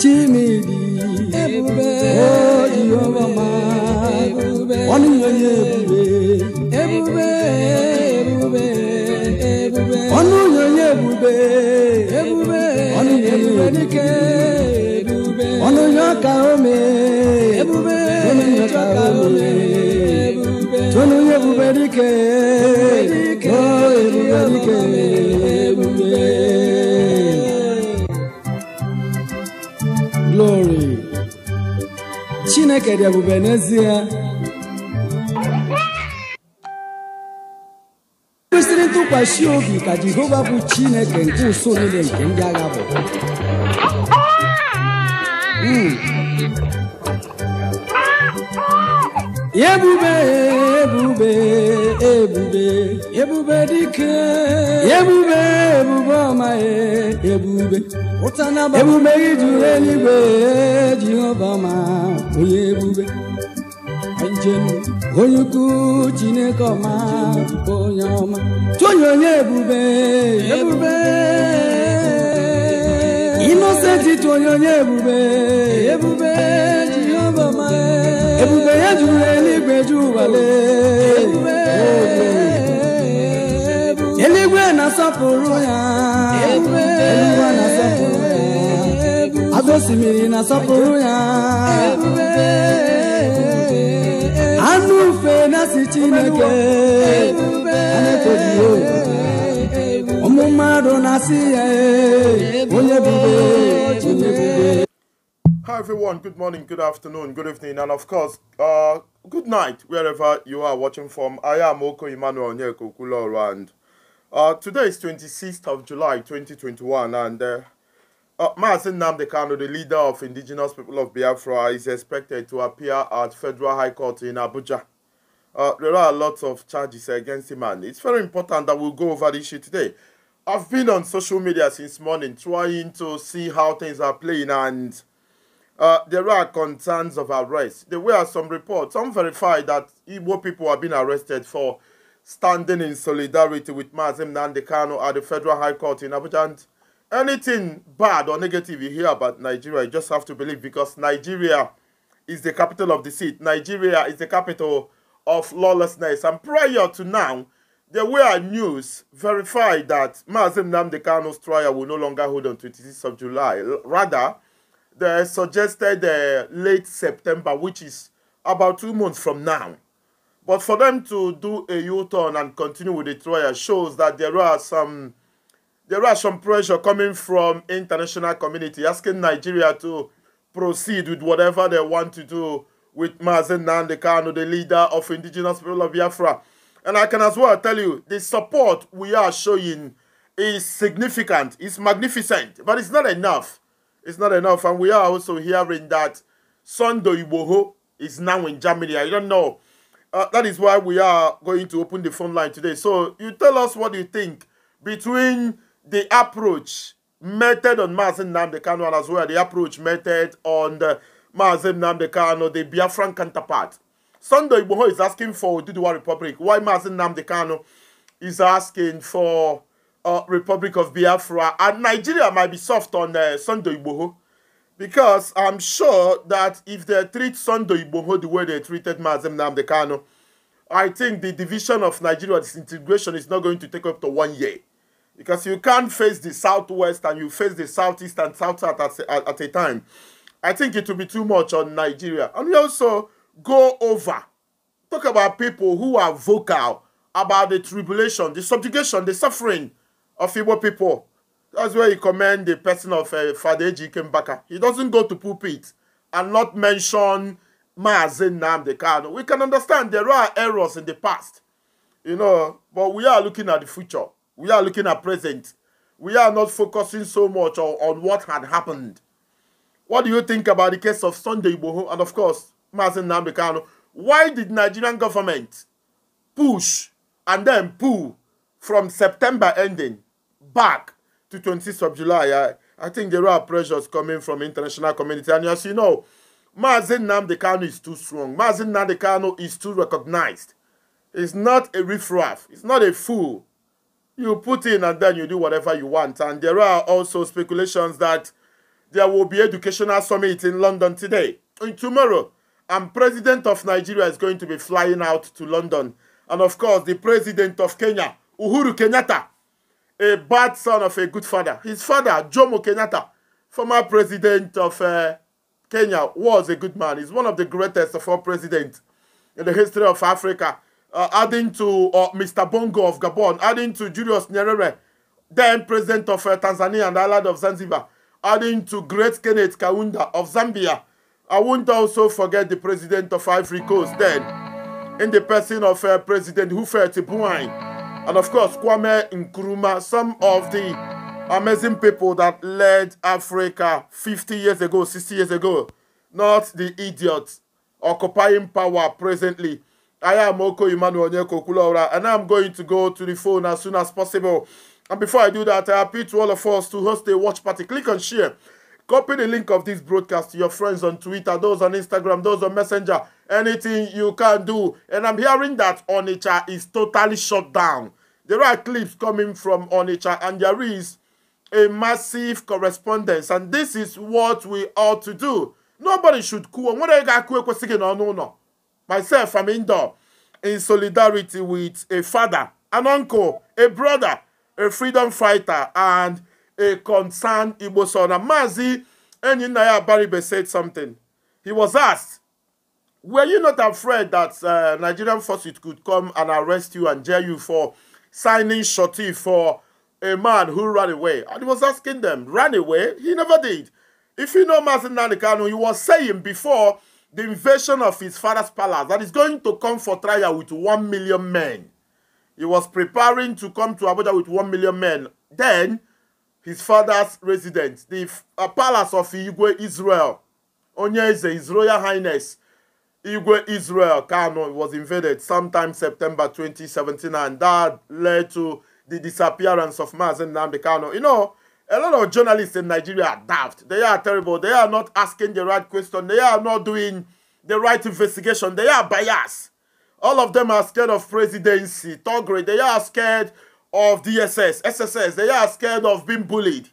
chimidi ebube oyioma ọnụnyoye ebube ebube ebube ọnụnyoye ebube ebube ọnụnyoye ebube ọnụnyo ka ome ebube ọnụnyo ka ome ebube ọnụnyo ebube dike. Chineke dị ebube n'ezie kwesịrị ntụkwasị obi ka Jehova bụ Chineke nke ụsọ niile nke ndị agha bụ hmm. ebube ebube ebube ebube dike ebube ebube ọma e, ebube Ebube emume juru eluigwe jehova ma onye ebube njem onye ukwu chineke ọma onye ọma chụnye onye ebube ebube inosenti chụnye onye ebube ebube jehova ma ebube ya juru eluigwe ju ụwale ebube eluigwe na-asọpụrụ ya ebube na-asọpụrụ Avesimiri na sọpụrụ ya anụ ufe na si Chineke anetoghị ụmụ mmadụ na-asị ya onye bube onye bube Hi everyone, good morning, good afternoon, good evening, and of course, uh, good night, wherever you are watching from. I am Oko Emmanuel Onyeko Kuloro, and uh, today is 26th of July 2021, and uh, Uh, Martin Namdekano, the leader of indigenous people of Biafra, is expected to appear at Federal High Court in Abuja. Uh, there are a lot of charges against him, and it's very important that we will go over this issue today. I've been on social media since morning trying to see how things are playing, and uh, there are concerns of arrest. There were some reports, some verified that Igbo people have been arrested for standing in solidarity with Mazim Nandekano at the Federal High Court in Abuja. And anything bad or negative you hear about Nigeria, you just have to believe because Nigeria is the capital of deceit. Nigeria is the capital of lawlessness. And prior to now, there were news verified that Mazim Namdekano's trial will no longer hold on 26th of July. Rather, they suggested uh, late September, which is about two months from now. But for them to do a U-turn and continue with the trial shows that there are some there are some pressure coming from international community asking Nigeria to proceed with whatever they want to do with Mazen Nandekano, the leader of indigenous people of Biafra. And I can as well tell you, the support we are showing is significant, it's magnificent, but it's not enough. It's not enough. And we are also hearing that Sondo Iboho is now in Germany. I don't know. Uh, that is why we are going to open the phone line today. So you tell us what you think between the approach method on Mazin Namdekano and as well the approach method on the Mazin Namdekano, the Biafran counterpart. Sunday Ibuho is asking for Duduwa Republic. Why Mazin Namdekano is asking for uh, Republic of Biafra. And Nigeria might be soft on uh, Sunday Ibuho because I'm sure that if they treat Sunday Ibuho the way they treated Mazin Namdekano, I think the division of Nigeria disintegration is not going to take up to one year. Because you can't face the southwest and you face the southeast and south south at, at, at a time. I think it will be too much on Nigeria. And we also go over, talk about people who are vocal about the tribulation, the subjugation, the suffering of Igbo people. That's where you commend the person of uh, Father Kembaka. He doesn't go to pulpit and not mention Mazen Namde We can understand there are errors in the past, you know, but we are looking at the future. We are looking at present. We are not focusing so much on, on what had happened. What do you think about the case of Sunday Igboho and of course, Mazen Namdekanu? Why did Nigerian government push and then pull from September ending back to 26th of July? I, I think there are pressures coming from international community. And as you know, Mazen Namdekano is too strong. Mazen Namdekano is too recognized. He's not a riffraff. He's not a fool. You put in and then you do whatever you want. And there are also speculations that there will be educational summit in London today. And tomorrow, and president of Nigeria is going to be flying out to London. And of course, the president of Kenya, Uhuru Kenyatta, a bad son of a good father. His father, Jomo Kenyatta, former president of uh, Kenya, was a good man. He's one of the greatest of all presidents in the history of Africa uh, adding to uh, Mr. Bongo of Gabon, adding to Julius Nyerere, then president of uh, Tanzania and Allied of Zanzibar, adding to great Kenneth Kaunda of Zambia. I won't also forget the president of Ivory Coast then, in the person of uh, President Hufet Buain, and of course Kwame Nkrumah, some of the amazing people that led Africa 50 years ago, 60 years ago, not the idiots occupying power presently I am Oko Emmanuel Onyeko Kulora, and I'm going to go to the phone as soon as possible. And before I do that, I appeal to all of us to host a watch party. Click on share. Copy the link of this broadcast to your friends on Twitter, those on Instagram, those on Messenger. Anything you can do. And I'm hearing that Onicha is totally shut down. There are clips coming from Onicha, and there is a massive correspondence. And this is what we ought to do. Nobody should cool. What are you going to Myself, I'm indoor in solidarity with a father, an uncle, a brother, a freedom fighter, and a concerned Igbo son. And Mazi Enyinaya Baribe said something. He was asked, were you not afraid that uh, Nigerian forces could come and arrest you and jail you for signing shorty for a man who ran away? And he was asking them, ran away? He never did. If you know Mazi Kanu, he was saying before the invasion of his father's palace that is going to come for trial with one million men. He was preparing to come to Abuja with one million men. Then, his father's residence, the uh, palace of Igwe Israel, Onyeze, His Royal Highness, Igwe Israel Kano was invaded sometime September 2017, and that led to the disappearance of Mazen Nambi Kano. You know, a lot of journalists in Nigeria are daft. They are terrible. They are not asking the right question. They are not doing the right investigation. They are biased. All of them are scared of presidency, Togre. They are scared of DSS, SSS. They are scared of being bullied.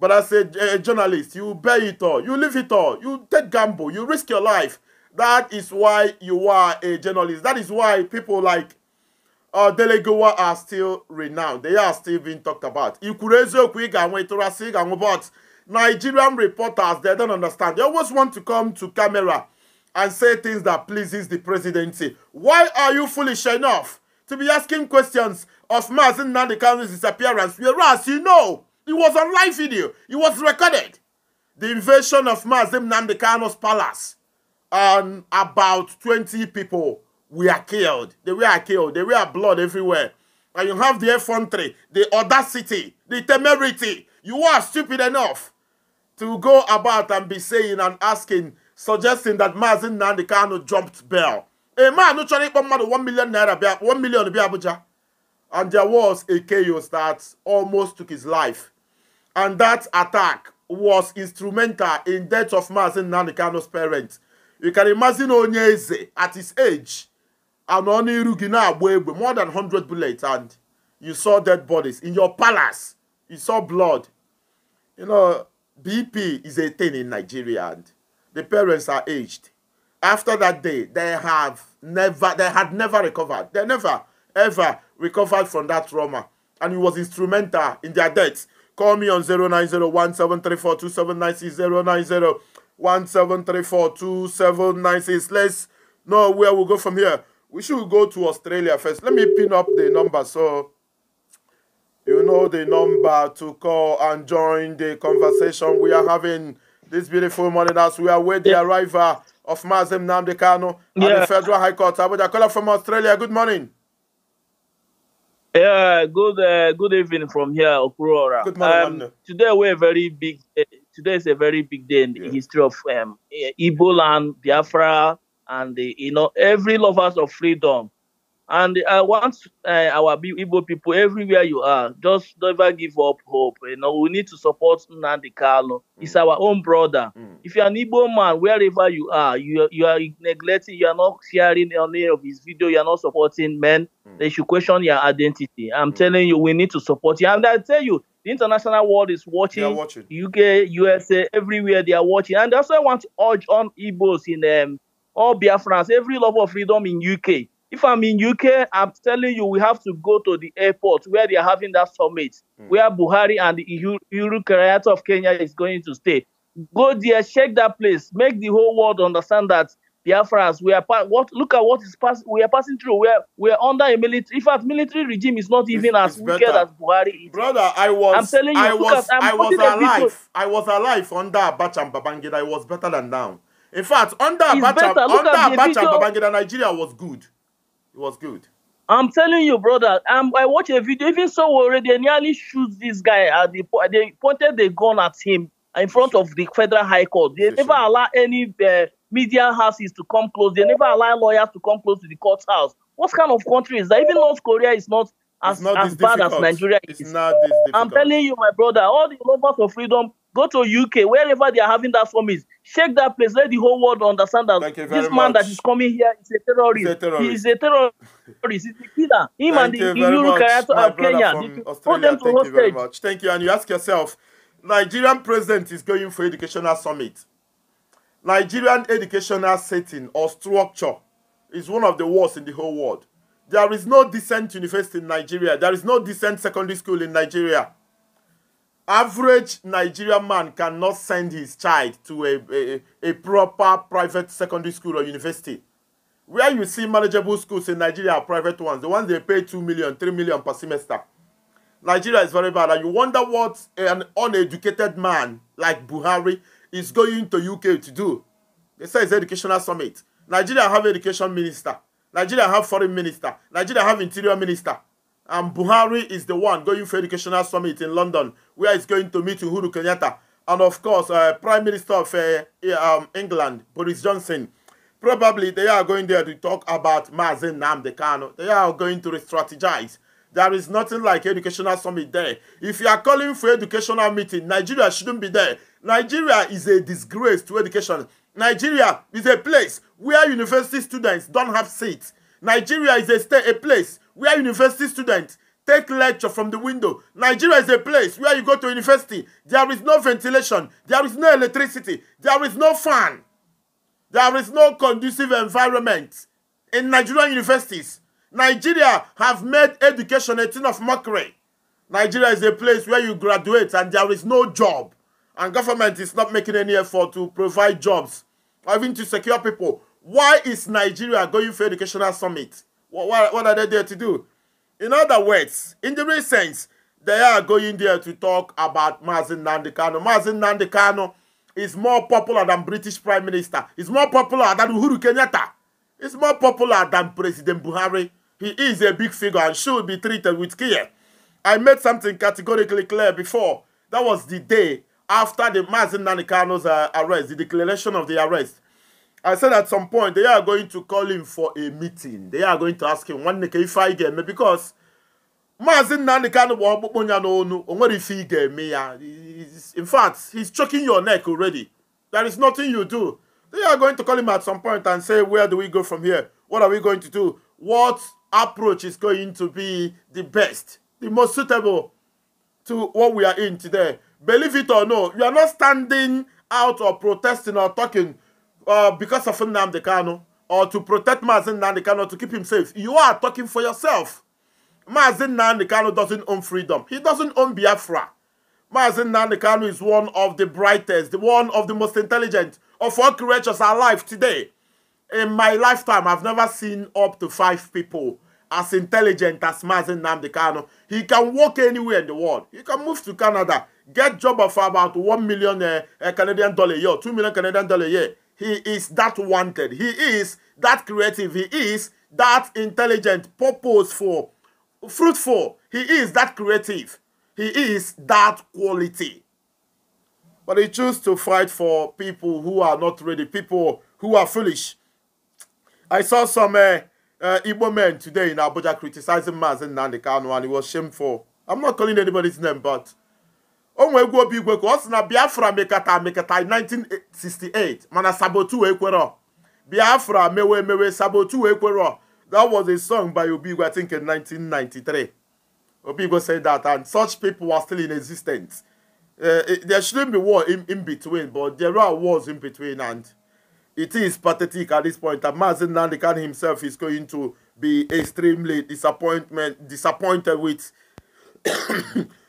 But as a, a journalist, you bear it all. You leave it all. You take gamble. You risk your life. That is why you are a journalist. That is why people like uh, Delegowa are still renowned. They are still being talked about. Ikurezoku Iganwetorasi but Nigerian reporters, they don't understand. They always want to come to camera and say things that pleases the presidency. Why are you foolish enough to be asking questions of Mazin Nandikano's disappearance, whereas you know it was on live video, it was recorded. The invasion of Mazin Nandikano's palace and about 20 people we are killed. They were killed. They were blood everywhere. And you have the effrontery, the audacity, the temerity. You are stupid enough to go about and be saying and asking, suggesting that Mazin Nandikano jumped bail. A man who tried to mad one million naira, one million be Abuja. And there was a chaos that almost took his life. And that attack was instrumental in death of Mazin Nandikano's parents. You can imagine Onyeze at his age and Rugina away with more than 100 bullets, and you saw dead bodies. In your palace, you saw blood. You know, BP is a thing in Nigeria, and the parents are aged. After that day, they have never, they had never recovered. They never, ever recovered from that trauma. And it was instrumental in their deaths. Call me on 0901734279609017342796. Let's know where we'll go from here we should go to Australia first. Let me pin up the number so you know the number to call and join the conversation we are having this beautiful morning as we await the yeah. arrival of Mazem Namdekano yeah. the Federal High Court. Abuja caller from Australia. Good morning. Yeah, good uh, good evening from here, Okurora. Good morning. Um, today we're very big. Uh, today is a very big day in the history of um, and land, Biafra, and the, you know every lovers of freedom. And I uh, want uh, our Igbo people everywhere you are, just never give up hope. You know, we need to support Nnamdi Carlo. Mm. He's our own brother. Mm. If you're an Igbo man, wherever you are, you, you are neglecting, you are not sharing any of his video, you are not supporting men, mm. they should question your identity. I'm mm. telling you, we need to support you. And I tell you, the international world is watching, watching. UK, USA, everywhere they are watching. And that's why I want to urge on Igbos in um, all Biafrans, every lover of freedom in UK. If I'm in UK, I'm telling you, we have to go to the airport where they are having that summit, mm. where Buhari and the Uhuru of Kenya is going to stay. Go there, shake that place, make the whole world understand that Biafrans, we are what look at what is pass we are passing through. We are we are under a military in fact military regime is not even it's, as it's wicked as Buhari is. Brother, I was I'm telling you, I was at, i was alive. I was alive under Bacham Babangida. I was better than now. In fact, under Abacha, under Abacha, Babangida Nigeria was good. It was good. I'm telling you, brother. Um, I watched a video. Even so, already nearly shoot this guy. At the, they pointed the gun at him in front of the federal high court. They never allow any uh, media houses to come close. They never allow lawyers to come close to the courthouse. What kind of country is that? Even North Korea is not as, as bad as Nigeria is. It's not this difficult. I'm telling you, my brother, all the lovers of freedom Go to UK, wherever they are having that summit. Shake that place. Let the whole world understand that this man much. that is coming here is a terrorist. He's a terrorist. He's a terrorist. He's a killer. Him Thank and the Iluru character of Kenya. Hold them to Thank hostage. you very much. Thank you. And you ask yourself, Nigerian president is going for educational summit. Nigerian educational setting or structure is one of the worst in the whole world. There is no decent university in Nigeria. There is no decent secondary school in Nigeria. average Nigerian man cannot send his child to a, a, a proper private secondary school or university. Where you see manageable schools in Nigeria are private ones. The ones they pay 2 million, 3 million per semester. Nigeria is very bad. And you wonder what an uneducated man like Buhari is going to UK to do. They say it's educational summit. Nigeria have education minister. Nigeria have foreign minister. Nigeria have interior minister. And Buhari is the one going for Educational Summit in London, where he's going to meet Uhuru Kenyatta. And of course, uh, Prime Minister of uh, eh, um, England, Boris Johnson. Probably they are going there to talk about Mazin Namdekano. They are going to re-strategize. strategize. There is nothing like educational summit there. If you are calling for educational meeting, Nigeria shouldn't be there. Nigeria is a disgrace to education. Nigeria is a place where university students don't have seats. Nigeria is a, a place where university students take lecture from the window. Nigeria is a place where you go to university. There is no ventilation. There is no electricity. There is no fan. There is no conducive environment in Nigerian universities. Nigeria have made education a thing of mockery. Nigeria is a place where you graduate and there is no job. And government is not making any effort to provide jobs or even to secure people. Why is Nigeria going for educational summit? What, what are they there to do? In other words, in the recent, they are going there to talk about Mazin Nandikano. Mazin Nandikano is more popular than British Prime Minister. He's more popular than Uhuru Kenyatta. He's more popular than President Buhari. He is a big figure and should be treated with care. I made something categorically clear before. That was the day after the Mazin Nandikano's uh, arrest, the declaration of the arrest. I said at some point they are going to call him for a meeting. They are going to ask him one neke if I ga-eme because Maazị Nnamdi Kanu bụ ọkpụkpụ ya n'onu o nwere ife ị ga ya in fact he's choking your neck already there is nothing you do they are going to call him at some point and say where do we go from here what are we going to do what approach is going to be the best the most suitable to what we are in today believe it or no you are not standing out or protesting or talking uh, because of Nnamdi Kanu or to protect Mazin Nnamdi Kanu to keep him safe. You are talking for yourself. Mazin Nnamdi Kanu doesn't own freedom. He doesn't own Biafra. Mazin Nnamdi Kanu is one of the brightest, one of the most intelligent of all creatures alive today. In my lifetime, I've never seen up to five people as intelligent as Mazin Nnamdi Kanu. He can walk anywhere in the world. He can move to Canada, get job of about 1 million uh, uh, Canadian dollar a year, 2 million Canadian dollar a year he is that wanted. He is that creative. He is that intelligent, purposeful, fruitful. He is that creative. He is that quality. But he chose to fight for people who are not ready, people who are foolish. I saw some uh, uh, Igbo men today in Abuja criticizing Mazen Nandekano and it was shameful. I'm not calling anybody's name, but onwe nwe egwu obi igwe ka ọ sị na biafra mekata mekata 1968 mana sabotu ekwero biafra mewe emewe sabotu ekwero that was a song by obigwe i think in 1993 obigwe said that and such people were still in existence uh, there shouldn't be war in, in between but there are wars in between and it is pathetic at this point that Mazin Nandikan himself is going to be extremely disappointment disappointed with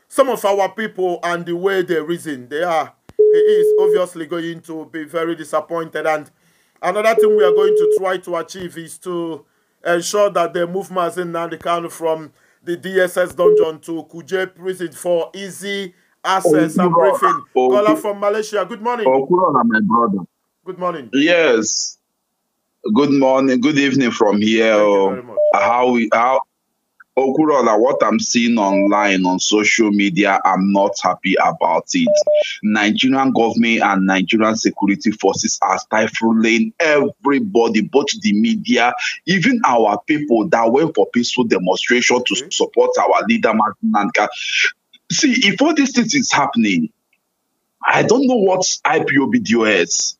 some of our people and the way they reason they are he is obviously going to be very disappointed and another thing we are going to try to achieve is to ensure that they move in Nandikan from the DSS dungeon to Kuje prison for easy access and briefing. Caller from Malaysia, good morning. my brother. Good morning. Yes. Good morning. Good evening from here. Oh. How, we how Okurola, what I'm seeing online on social media, I'm not happy about it. Nigerian government and Nigerian security forces are stifling everybody, both the media, even our people that went for peaceful demonstration to mm-hmm. support our leader, Martin Nanka. See, if all these things is happening, I don't know what IPOB IPOBDOS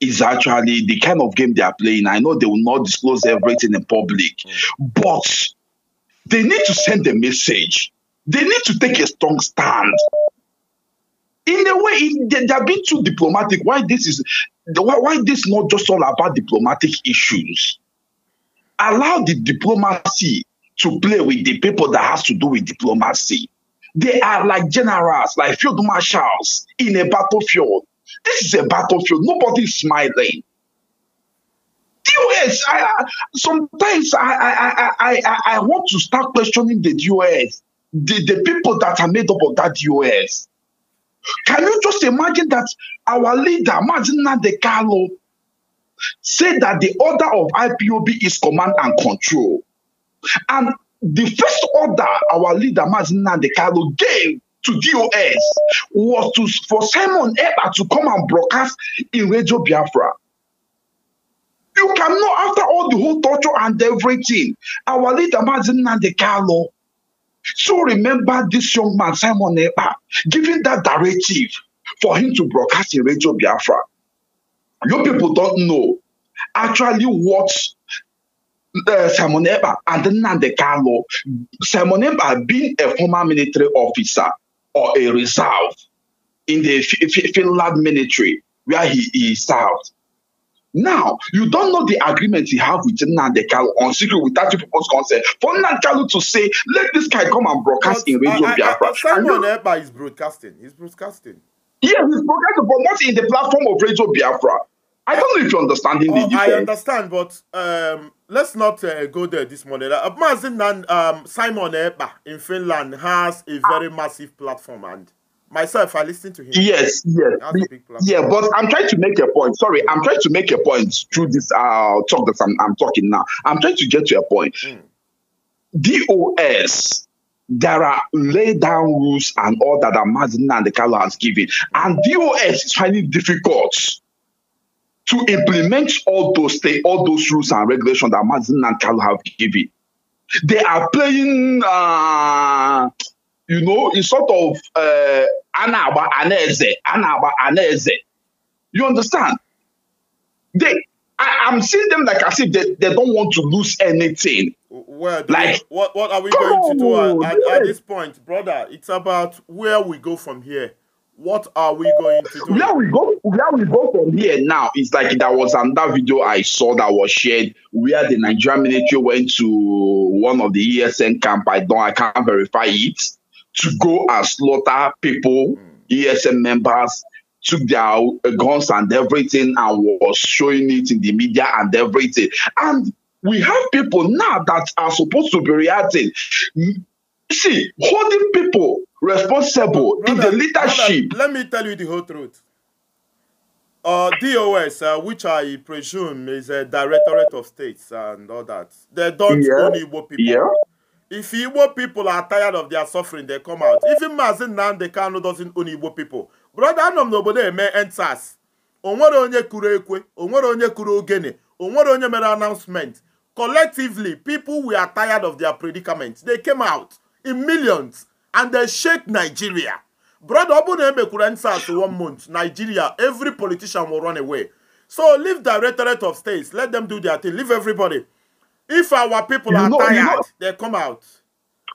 is actually the kind of game they are playing. I know they will not disclose everything in public, mm-hmm. but They need to send a message. They need to take a strong stand. In a way, they, have are being too diplomatic. Why this is why, why this not just all about diplomatic issues? Allow the diplomacy to play with the people that has to do with diplomacy. They are like generals, like field marshals in a battlefield. This is a battlefield. Nobody's smiling. DOS. I, sometimes I, I, I, I, I want to start questioning the DOS, the, the people that are made up of that DOS. Can you just imagine that our leader, Mazina De Carlo, said that the order of IPOB is command and control? And the first order our leader, Mazina De Carlo, gave to DOS was to, for Simon Eber to come and broadcast in Radio Biafra. You cannot, after all the whole torture and everything, our leader the Carlo. So remember this young man, Simon giving that directive for him to broadcast in Radio Biafra. You people don't know actually what uh, Simon and Nande Carlo, Simon Epa being a former military officer or a reserve in the F F Finland military where he, he served. Now, you don't know the agreement he have with Nnamdi Kalu on secret without your people's consent. For Nnamdi Kalu to say, let this guy come and broadcast but, in Radio I, Biafra. I, Simon Eba is broadcasting. He's broadcasting. Yeah, he's broadcasting, but not in the platform of Radio Biafra. I don't know if you're understanding oh, the I understand, but um, let's not uh, go there this morning. Uh, Mazin and um, Simon Eba in Finland has a very massive platform and Myself, I listen to him. Yes, yes. Yeah, but I'm trying to make a point. Sorry, I'm trying to make a point through this uh, talk that I'm, I'm talking now. I'm trying to get to a point. Mm. DOS there are laid down rules and all that Amazina and the Carlo has given. And DOS is finding difficult to implement all those things, all those rules and regulations that Amazina and Carlo have given. They are playing uh, you know, it's sort of uh, eh, anaba aneze, anaba aneze. You understand? They, I, am seeing them like as if they, they don't want to lose anything. Well, like, what, what are we going to do at, at, at, this point, brother? It's about where we go from here. What are we going to do? Where we go, where we go from here now it's like that was another video I saw that was shared where the Nigerian military went to one of the ESN camp. I don't, I can't verify it to go and slaughter people, ESM members, took their guns and everything and was showing it in the media and everything. And we have people now that are supposed to be reacting. See, holding people responsible brother, in the leadership. Brother, let me tell you the whole truth. Uh, DOS, uh, which I presume is a Directorate of States and all that, they don't yeah. own Igbo people. Yeah If Igbo people are tired of their suffering, they come out. Even Mazin Nnamdi Kanu doesn't own Igbo people. Brother Anọm n'obodo eme enters. O nwere onye kuru ekwe, o nwere onye kuru ogene, o nwere onye mere announcement. Collectively, people were tired of their predicament. They came out in millions and they shake Nigeria. Brother ọ bụrụ na emekwuru enters one month, Nigeria, every politician will run away. So leave directorate of states, let them do their thing, leave everybody. If our people you are know, tired, you know, they come out.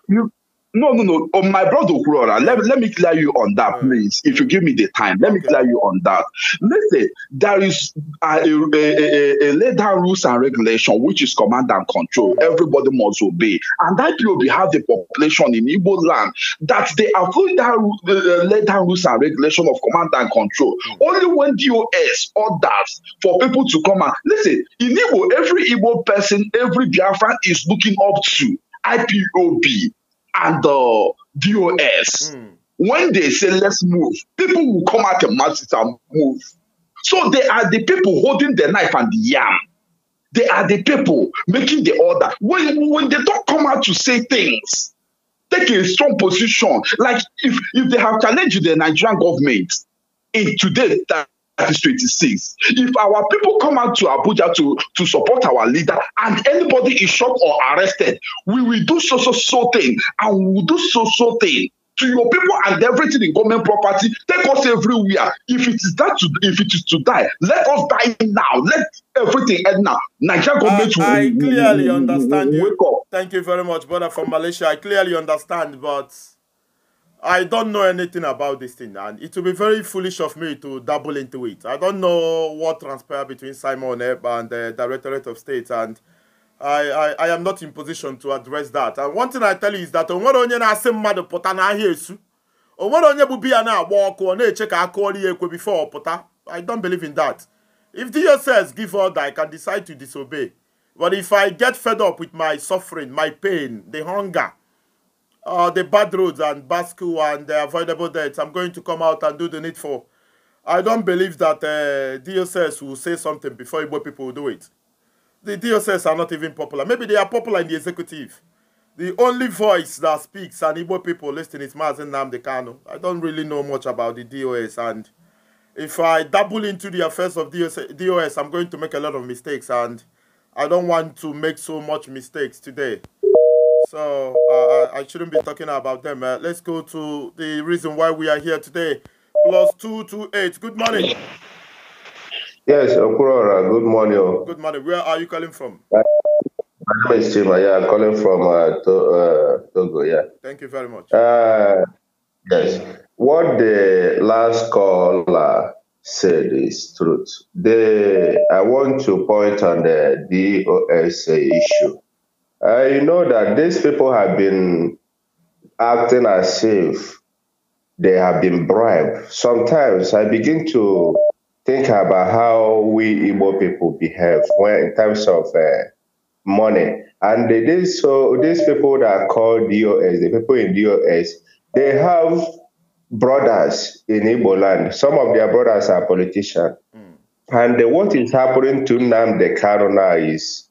You No, no, no. Oh, my brother Kurora, let, let me clear you on that, mm. please. If you give me the time, let me clear you on that. Listen, there is a, a, a, a laid down rules and regulation, which is command and control. Mm. Everybody must obey. And that POB have the population in Igbo land that they are following that uh, uh laid down rules and regulation of command and control. Mm. Only when DOS orders for people to come and listen, in Igbo, every Igbo person, every Biafran is looking up to IPOB and the DOS, mm. when they say let's move, people will come out and masses and move. So they are the people holding the knife and the yam. They are the people making the order. When, when they don't come out to say things, take a strong position. Like if, if they have challenged the Nigerian government in today's time. is 26. If our people come out to Abuja to, to support our leader and anybody is shot or arrested, we will do so, so, so thing and we will do so, so thing to your people and everything in government property. Take us everywhere. If it is that, to, if it is to die, let us die now. Let everything end now. Nigeria government uh, I, clearly understand you. Wake up. Thank you very much, brother from Malaysia. I clearly understand, but. I don't know anything about this thing, and it will be very foolish of me to double into it. I don't know what transpired between Simon Ebb and the Directorate of State, and I, I, I am not in position to address that. And one thing I tell you is that onwere onye na-asị mmadụ pota na-agba ọkụ ọ na-eche ka aka ọrụ ekwe before pota. I don't believe in that. If the says give order, I can decide to disobey. But if I get fed up with my suffering, my pain, the hunger, uh, the bad roads and bad school and the avoidable deaths. I'm going to come out and do the needful. I don't believe that uh, DSS will say something before Igbo people will do it. The DSS are not even popular. Maybe they are popular in the executive. The only voice that speaks and Igbo people listening is Mazen Namdekano. I don't really know much about the DOS and if I dabble into the affairs of DOS, DOS I'm going to make a lot of mistakes and I don't want to make so much mistakes today. So uh, I, shouldn't be talking about them. Uh, let's go to the reason why we are here today. Plus two two eight. Good morning. Yes, Okurora. Good morning. Good morning. Where are you calling from? my name is Chima. Yeah, I'm calling from uh, to, uh, Togo. Yeah. Thank you very much. Uh, yes. What the last caller said is truth. The I want to point on the DOSA issue uh, you know that these people have been acting as if they have been bribed. Sometimes I begin to think about how we Igbo people behave when, in terms of uh, money. And they did so these people that are called DOS, the people in DOS, they have brothers in Igbo land. Some of their brothers are politicians. Mm. And the, what is happening to them, the now is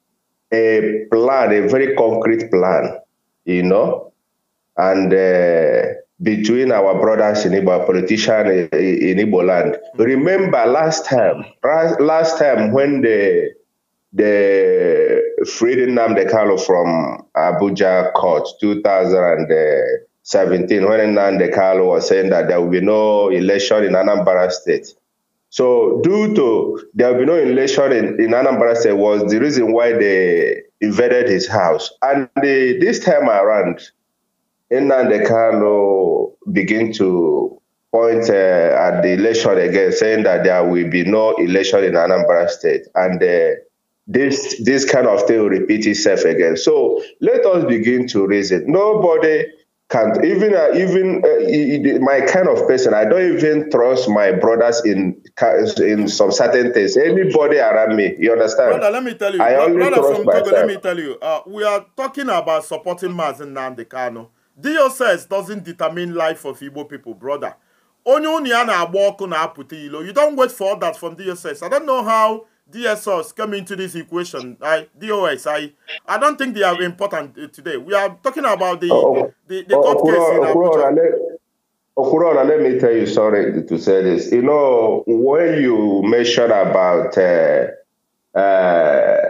a plan, a very concrete plan, you know, and uh, between our brothers in Ibo politicians in, Ibo land. Remember last time, last time when the the Freedom Nnamdi Kano from Abuja court 2017, when Nnamdi Kano was saying that there will be no election in Anambra state. So due to there will be no election in, in Anambra State was the reason why they invaded his house. And this time around, Nnamdi Kano begin to point uh, at the election again, saying that there will be no election in Anambra State. And uh, this this kind of thing will repeat itself again. So let us begin to reason. Nobody can't even uh, even uh, my kind of person. I don't even trust my brothers in in some certain things. Anybody around me, you understand? Brother, let me tell you. I brother, only brother from Togo, let me tell you. Uh, we are talking about supporting Mazin Nandekano. DSS doesn't determine life of Igbo people, brother. Onye onye a na-agba ilo. You don't wait for that from DSS. I don't know how DSOs come into this equation, I, DOS, I, I don't think they are important uh, today. We are talking about the, oh, oh the, the oh, court case in Abuja. Let, let me tell you, sorry to say this. You know, when you mentioned about uh, uh,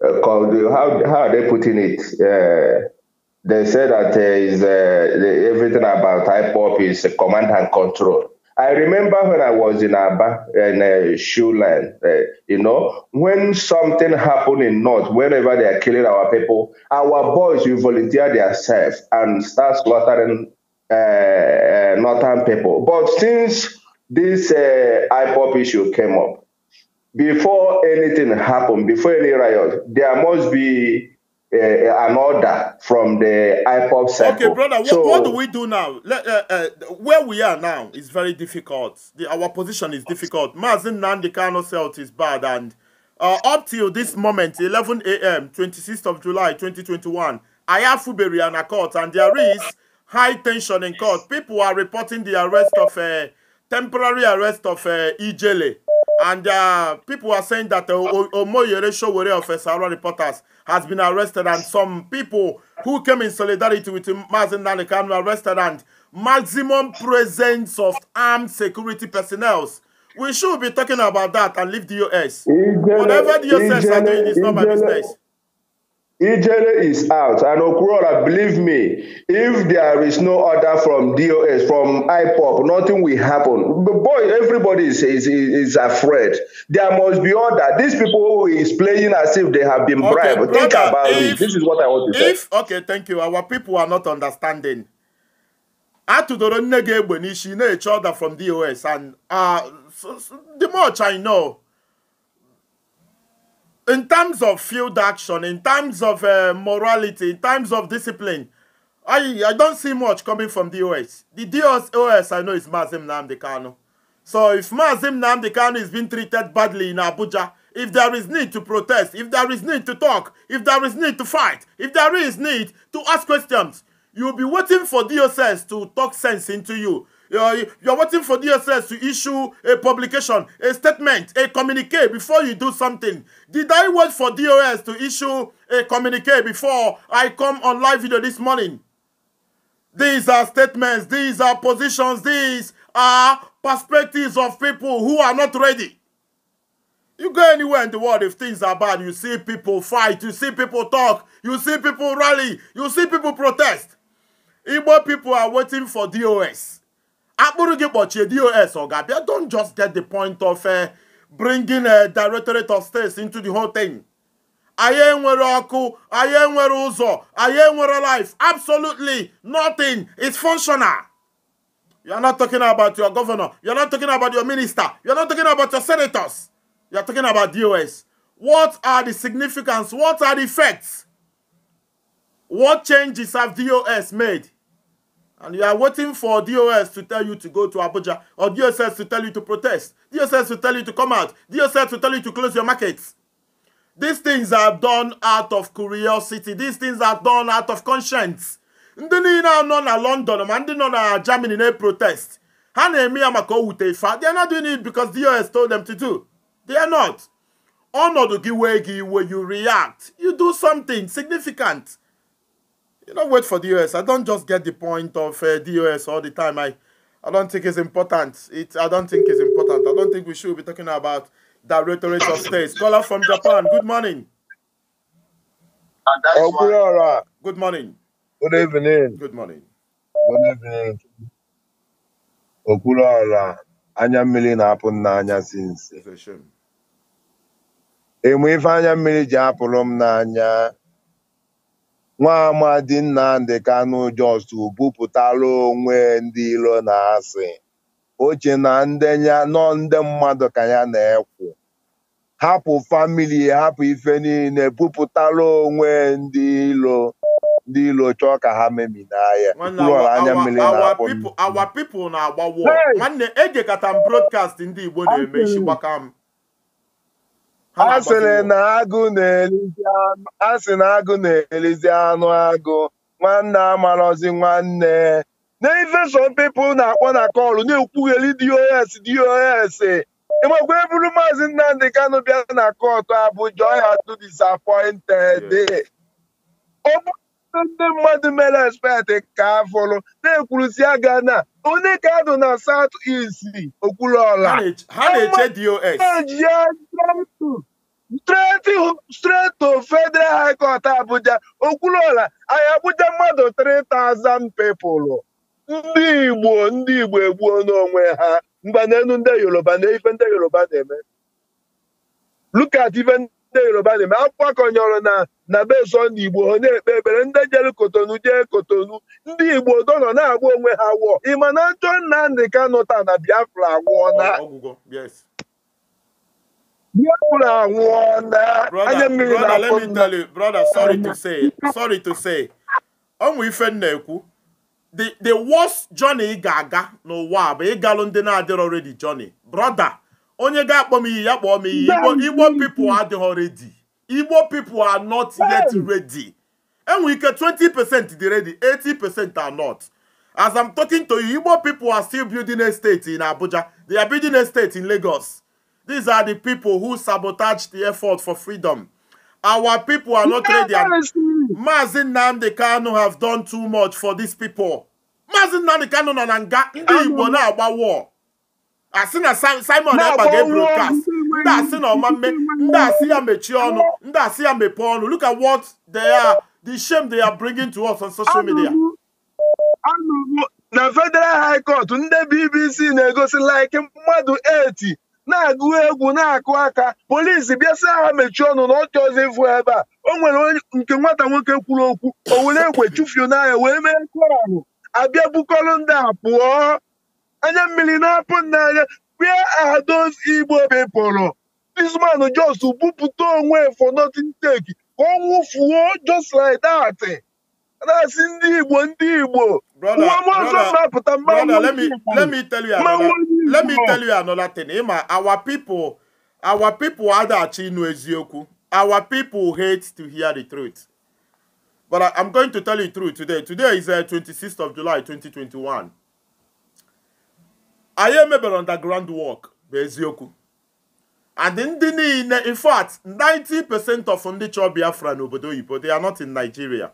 how, how are they putting it? Uh, they say that uh, is, uh, everything about IPOP is command and control. I remember when I was in Abba in uh, Shuland, uh, you know, when something happened in North, whenever they are killing our people, our boys will volunteer themselves and start slaughtering uh, uh, Northern people. But since this uh, IPOP issue came up, before anything happened, before any riot, there must be uh, an order from the IPOP circle. Okay, brother, so, what, do we do now? Let, uh, uh, where we are now is very difficult. The, our position is difficult. Mazin Nandikano Celt is bad, and uh, up till this moment, 11 a.m., 26th of July, 2021, I have Fuberi and a court, and there is high tension in court. People are reporting the arrest of a uh, temporary arrest of uh, Ijele. And uh, people are saying that uh, Omoyere Showore of Esaro reporters has been arrested, and some people who came in solidarity with Mazin Nalikan were arrested, and maximum presence of armed security personnel. We should be talking about that and leave the US. Whatever the US are doing is not my business. Ijele is out. And Okurora, believe me, if there is no order from DOS, from IPOP, nothing will happen. But boy, everybody is, is, is afraid. There must be order. These people who is playing as if they have been okay, bribed. Brother, Think about if, it. This is what I want to if, say. Okay, thank you. Our people are not understanding. Atudoro Negebe Nishi, no order from DOS. And uh, so, so, the much I know, in terms of field action, in terms of uh, morality, in terms of discipline, I I don't see much coming from the OS. The DOS, OS I know is Mazim Namdekano. So if Mazim Namdekano is being treated badly in Abuja, if there is need to protest, if there is need to talk, if there is need to fight, if there is need to ask questions, you'll be waiting for DOS to talk sense into you you're, you're waiting for DSS to issue a publication, a statement, a communique before you do something. Did I wait for DOS to issue a communique before I come on live video this morning? These are statements, these are positions, these are perspectives of people who are not ready. You go anywhere in the world if things are bad, you see people fight, you see people talk, you see people rally, you see people protest. Igbo people are waiting for DOS akpụrụ dos ọ do don't just get the point of uh, bringing a uh, directorate of states into the whole thing. I am where ọkụ anyị enwere ụzọ am enwere life absolutely nothing is functional you're not talking about your governor you're not talking about your minister you're not talking about your senators you're talking about dos what are the significance what are the effects what changes have dos made and you are waiting for DOS to tell you to go to Abuja or DSS to tell you to protest, DSS to tell you to come out, DSS to tell you to close your markets. These things are done out of curiosity. These things are done out of conscience. Ndị niile nọ na London ma ndị nọ na Germany na-protest. Ha na-eme ya maka owute ife. They are not doing it because DOS told them to do. They are not. Ọnọdụ gị wee gị iwe you react. You do something significant. you know, wait for the US. I don't just get the point of uh, US all the time. I, I don't think it's important. It, I don't think it's important. I don't think we should be talking about Directorate of states. Caller from Japan. Good morning. Oh, good, all right. good morning. Good evening. Good morning. Good evening. Okwuluọra oh, anya mmiri na-apụ m n'anya si nsi. Enwe ife anya mmiri ji apụrụ m Nwaamadi Nnamdi Kanu Jos bupụtara onwe ndị iro na asị o che na nọ ndị mmadụ ka ya na-ekwu hapụ famili hapụ ife niile bupụtara onwe ndị iro ndị iro chọọ ka ha memina ya anya mmiri na-akpọ awa na-agbawo nwanne ejekata m brodkast ndị Igbo na-eme isi gbaka m a sị na agụ na-elizi anụ agụ nwanne amarozi nwanne n'inveshọn pipụl na-akpọ na kọlụ na-ekwugheli dos dos ịmakwa e eburu maazị Nnamdi Kano bịa na kọtụ Abuja ọya tụ disappointed ndị mmadụ mere expect ka afụrụ na-ekwurusi aga na onye ka adụ na South East ọla. ha na-eche dos Steeti Federal High Court Abuja okwuluọla anyị Abuja mmadụ 3000 pepụlụ ndị Igbo ndị Igbo egbuo n'onwe ha mgbanelu ndị Yoruba na ife ndị Yoruba na-eme lukat ife ndị Yoruba na-eme akwụkwọ kọnyọrọ na na bezo Igbo ha na-ekpe ekpere ndị jere Kotonu jee Kotonu ndị Igbo donọ na-agba onwe ha wụọ ịma na njọ Nnamdi Kanụ na Biafra agwụọ na brother, let me tell you, brother, sorry to say, sorry to say. Ọmụ ife ekwu the worst journey ị ga-aga n'ụwa bụ ịgalụ ndị na-adịrọ redi journey brọda onye ga-akpọ m iyi ya kpọọ m iyi igbo people adịghọ redi igbo people are not yet ready enwe ike 20 di redi ready 80 are not as I'm talking to you igbo people are still building a in Abuja they are building a state in Lagos These are the people who sabotage the effort for freedom. Our people are not ready. Mazin Nnamdi Kanu have done too much for these people. Mazin Nnamdi Kanu na nanga. ndị Igbo na-agba war. Asị Simon Ekpa ga-ebrocast. Ndị asị na me. ndị asị ya mechie ọnụ, ndị asị ya mepee ọnụ. Look at what they are, the shame they are bringing to us on social media. Na Federal High Court, ndị BBC na-egosi like mmadụ 80 na-agụ egwu na-akụ aka polisi bịa aha mechie ọnụ na ọchị ọzọ ịfụ ebe a o nwere nke nwata nwoke kwuru okwu o were egwe chụfuo n'anya wee mee kọranụ abịa bukọrọ ndị a pụọ anya mmiri na-apụ n'anya where are igbo people this Jos bupụta onwe for nothing take ka ọ nwụfuo just like that na-asị ndị igbo ndị igbo nwa m ọzọ mapụta mmanwụ let me tell you another thing ịma our people our people adaghachi ịnụ eziokwu our people hate to hear the truth but I, i'm going to tell you the truth today today is uh, 26th of july 2021 I anyị emebere underground work bụ eziokwu and ndị niile in fact 90% of ndị chọọ biafra n'obodo oyibo they are not in nigeria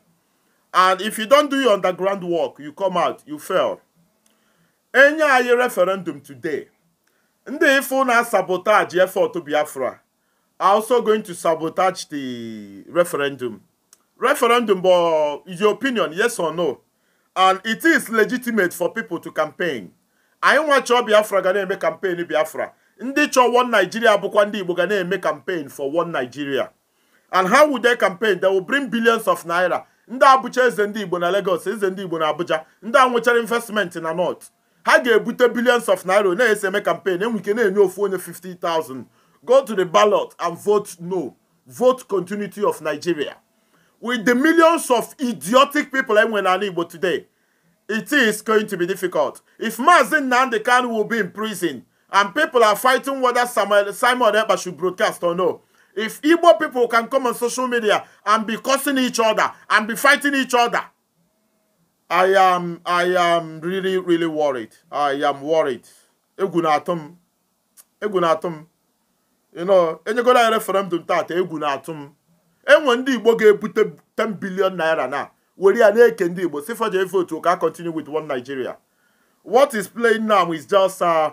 and if you don't do your underground work you come out you fail enye anyị referendum today ndị ife na sabotage effort biafra are also going to sabotage the referendum referendum bụ your opinion yes or no and it is legitimate for people to campaign anyị nwa chọọ biafra ga na-eme campaign biafra ndị chọọ one nigeria bụkwa ndị igbo ga na-eme campaign for one nigeria and how would they campaign they will bring billions of naira ndị abụcha eze ndị igbo na lagos eze ndị igbo na abuja ndị a investment na north ha ga-ebute billions of naira na-ese campaign Then we can enye 450,000. 50,000 go to the ballot and vote no vote continuity of Nigeria with the millions of idiotic people I'm enwe n'ala Igbo today it is going to be difficult if Maazị Nandekan will be in prison and people are fighting whether Samuel, Simon Ekpa should broadcast or no if Igbo people can come on social media and be cursing each other and be fighting each other I am I am really really worried. I am worried. Egwu na-atụ m. Egwu na-atụ m. You know, enyegola ya referendum taata egwu na-atụ m. Enwe ndị Igbo ga-ebute 10 billion naira na were ya na-eke ndị Igbo si faje vote ka continue with one Nigeria. What is playing now is just uh,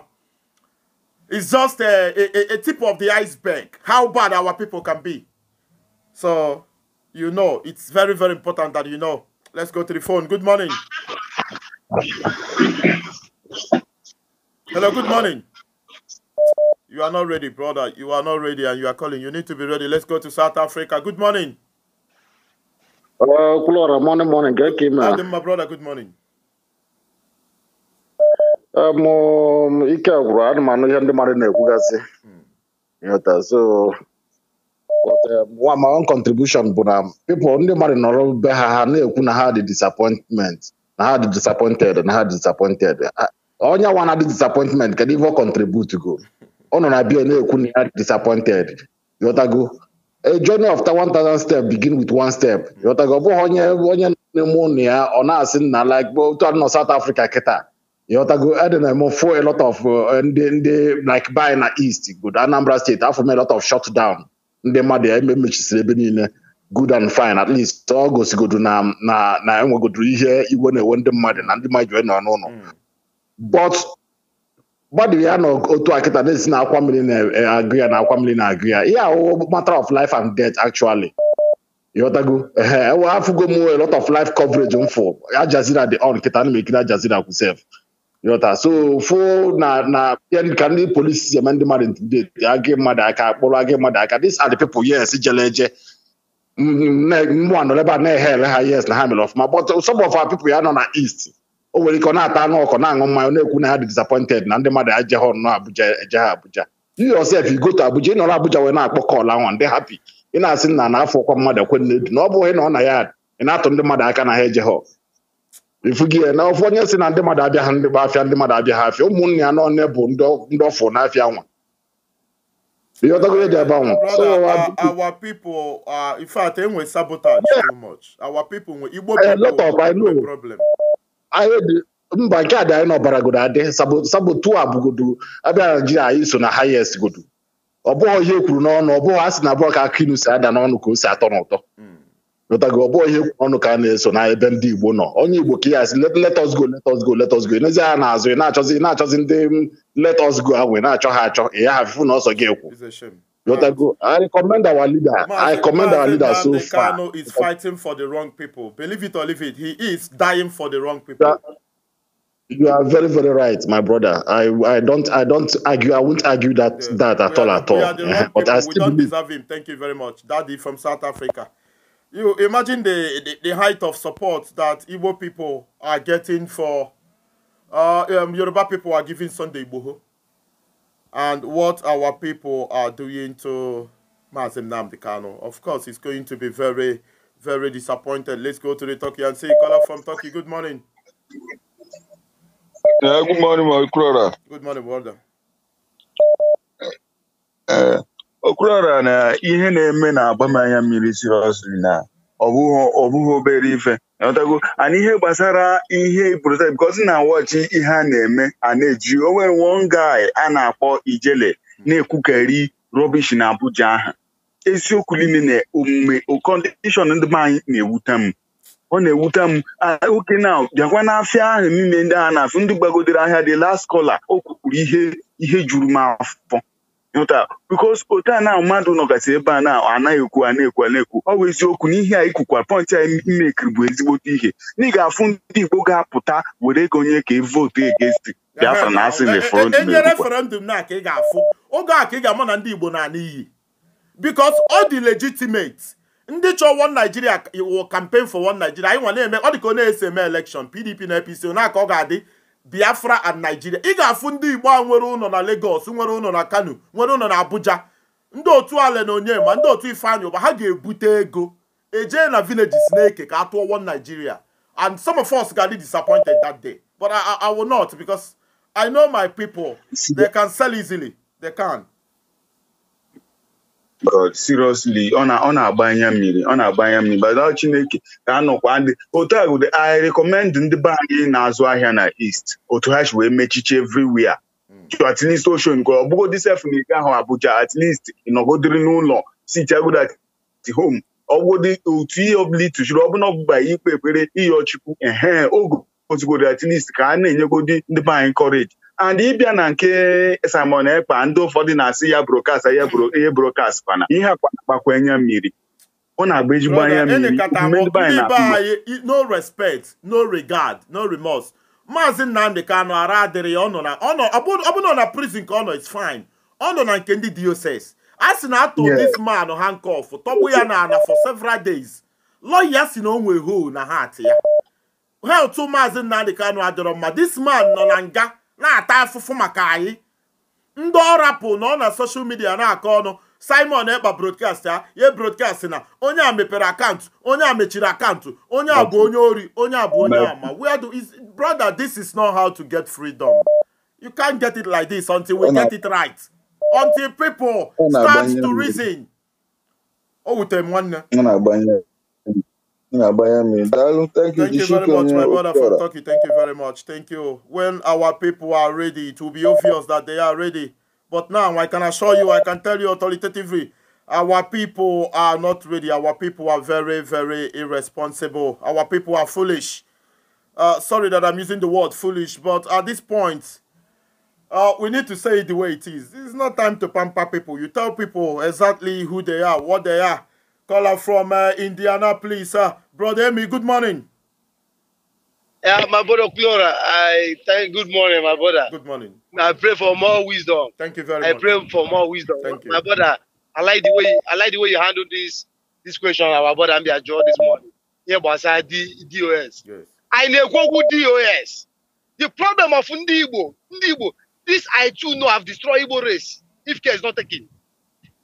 is just a, a, a tip of the iceberg. How bad our people can be. So, you know, it's very very important that you know Let's go to the phone. Good morning. Hello, good morning. You are not ready, brother. You are not ready and you are calling. You need to be ready. Let's go to South Africa. Good morning. Uh, morning, morning. Adam, my brother, good morning. Um, ike agwụrụ I am ndị mmadụ na-ekwu gasị so But um, my own contribution bụ na pipụl ndị mmadụ nọrọ be ha ha na-ekwu na ha dị disappointment na ha dị disappointed na ha dị disappointed onye nwa na-adị disappointment kedu ife ọ contribute go ọ nọ na bia na-ekwu na ya dị disappointed yọtago a journey of 1000 step begin with one step yọtago ọ bụghị onye onye na-eme ụnụ ya ọ na-asị na like otu a nọ South Africa kịta yọtago edị na fo a lot of uh, ndị ndị uh, like by na east good Anambra State afọ m a lot of shutdown. down ndị mmadụ ya emechisiri ebe niile good and fine at least ọ gosigodo na na na enwegodoro ihe iwe na-ewe ndị mmadụ na ndị mmadụ hmm. nọ n'ụlọ but gbadiri ya na otu akịta na-esi na akwa mmiri na-agụ ya na akwa mmiri na-agụ ya ihe ahụ matter of life and death actually ehe, enwe afụgo m a lot of life coverage m fụ on kịta na m ajazira Yọta so ofu na na ka ndị polisi si eme ndị mmadụ dị agị mmadụ aka kpụrụ agị mmadụ aka dis are the people yes jele eje mmụọ nọ ebe a na-eghe mm, mm, ele ha yes na ha mere ọfụma but uh, some of our people ya nọ na east o nwere ike ọ na-ata anụ ọkụ na-aṅụ mmanya na-ekwu na ha dị disappointed na ndị mmadụ aje ha ọnụ Abuja eje ha Abuja you yourself you go to Abuja ịnọrọ Abuja wee na-akpọ kọl ahụ ndị hapi ị na-asị na na afọ ọkwa mmadụ ekwe na edu na ọ bụghị na ọ na ya ị na-atụ ndị mmadụ aka na ha eje ha ya na ofu onye si na ndị mmadụ abịa ha ndị afịa ndị mmadụ abịa ha afịa ụmụnne ya n'ọnụ bụ ndị n'afịa nwa ihe ọtọgo dị ebe anwa e eh, mba nke a dị anyị n'ọbara godo adị sabotu a bụgodo abịa naijiria anyị so na highest godo ọ bụghị ihe ekwuru n'ọnụ ọ bụghị a sị na abụọ ka akụ si ada n'ọnụ ka o si atọ n'ụtọ mm. lọtago ọ bụghị ikwu ọnụ ka a na-eso na ebe ndị Igbo nọ onye Igbo ka ya asị let us go let us go let us go n'ezie ha na-azụ ị na-achọzi ị na-achọzi ndị let us go ahụ ị na-achọ ha achọ ị ya na ọsọ gị ekwu I commend our leader I recommend our leader so far Kano is fighting for the wrong people believe it or leave it he is dying for the wrong people You are very, very right, my brother. I, I don't, I don't argue. I won't argue that yes. that at we all, are, at all. But I still we don't believe. deserve him. Thank you very much, Daddy from South Africa you imagine the, the, the, height of support that Igbo people are getting for uh, um, Yoruba people are giving Sunday Igboho and what our people are doing to Mazim Namdekano. Of course, he's going to be very, very disappointed. Let's go to the Turkey and see caller from Turkey. Good morning. Yeah, good morning, my brother. Good morning, brother. Uh, okwuruọra na ihe na-eme na-agba m anya mmiri sirọsli na ọ bụghị obere ife ọtago ana ihe gbasara ihe protet bikọzi na-awọchi ihe a na-eme a na-eji o nwere one guy a na-akpọ ijele na-ekwukari rọbish na Abuja ha eziokwu niile na omume kọndishọn ndị anyị na-ewute m ọ na-ewute m ah, oke na bịakwa n'afịa ahụ niile ndị a na-afụ ndị gbagodere ahịa dị last kola o kwukwuru ihe ihe juru m afọ hụta bikos otu a na mmadụ nọgasị ebe a na anaghị ekwu a na-ekwu a na-ekwu ọ bụ eziokwu na a ikwukwa pọnchị anyị mmekiri bụ ezigbote ihe na ị ga-afụ ndị Igbo ga-apụta were ego onye ka votu egesti Biafra na asị na referendum na ka ị ga-afụ oge a ka ị ga-ama na ndị Igbo na n'iyi bikos ọ dị legitimate ndị chọọ one Naijiria iwu campaign for one Naijiria anyị nwa na-eme ọ dị ka ọ na-ese eme PDP na APC na aka ọ ga-adị biafra and nigeria ị ga-afụ ndị igbo a nwere ụlọ na legos nwere ụlọ na kano nwere ụlọ na abuja ndị otu ala na onye ma ndị otu ifeanyi ụba ha ga-ebute ego ejee na villages na-eke ka a tụọ one nigeria and some of us got disappointed that day but I, I, I will not because I know my people they can sell easily they can but seriously ọ na-agba anya mmiri ọ na-agba anya mmiri bada Chineke ka a ndị otu a gụdị I recommend ndị be anyị na-azụ ahịa na East otu ha si wee mechiche everywhere hmm. at least ocean nke ọ bụgodị sef na ike ahụ Abuja at least ịnọgodiri n'ụlọ sitagod at home ọgwụdị otu ihe ọbụla ịtụchiri ọbụla ọgbụgba ikpe ekpere iyi ọchukwu ehe oge ozugodi at least ka a na-enyegodi ndị be anyị and ịbịa na nke Simon Ekpa ndị ụfọdụ na-asị ya brokast ihe brokast kwana ihe akpakwa anya mmiri ọ na-agba ezigbo anya mmiri no respect no regard no remorse maazị Nnamdị Kanụ ara adịrị ya na ọbụna na prison ka ọ nọ is fine ọ nọ na nke ndị diocese a sị na atụ this man handcuff tọgbu ya na ana for several days lọya si na o hoo na heart ya health maazị Nnamdị Kanụ adịrọ mma this man nọ na nga na-ata afụfụ maka anyị ndị ọ nọ na soshal midia na-akọ ọnụ simon ekpa brodkast ya ye brodkast na onye a mepere akaụntụ onye a mechiri akaụntụ onye a bụ onye ori onye a bụ onye ama where do is brother this is not how to get freedom you can't get it like this until we get it right until people start to reason o wutere m nwanne Yeah, by Thank you, Thank you very much, my brother for talking. Thank you very much. Thank you. When our people are ready, it will be obvious that they are ready. But now I can assure you, I can tell you authoritatively, our people are not ready. Our people are very, very irresponsible. Our people are foolish. Uh, sorry that I'm using the word foolish, but at this point, uh, we need to say it the way it is. It's not time to pamper people. You tell people exactly who they are, what they are caller from uh, Indianapolis. Uh, Brother Emmy, good morning. Yeah, my brother Clora, I thank good morning, my brother. Good morning. I pray for more wisdom. Thank you very I much. I pray for more wisdom. Thank you, my brother, I like the way I like the way you handle this this question our brother and your this morning. Yeah, but I D DOS. Yes. I know Google DOS. The problem of Ndibo, Ndibo, this I too know have destroyed race if care is not taken.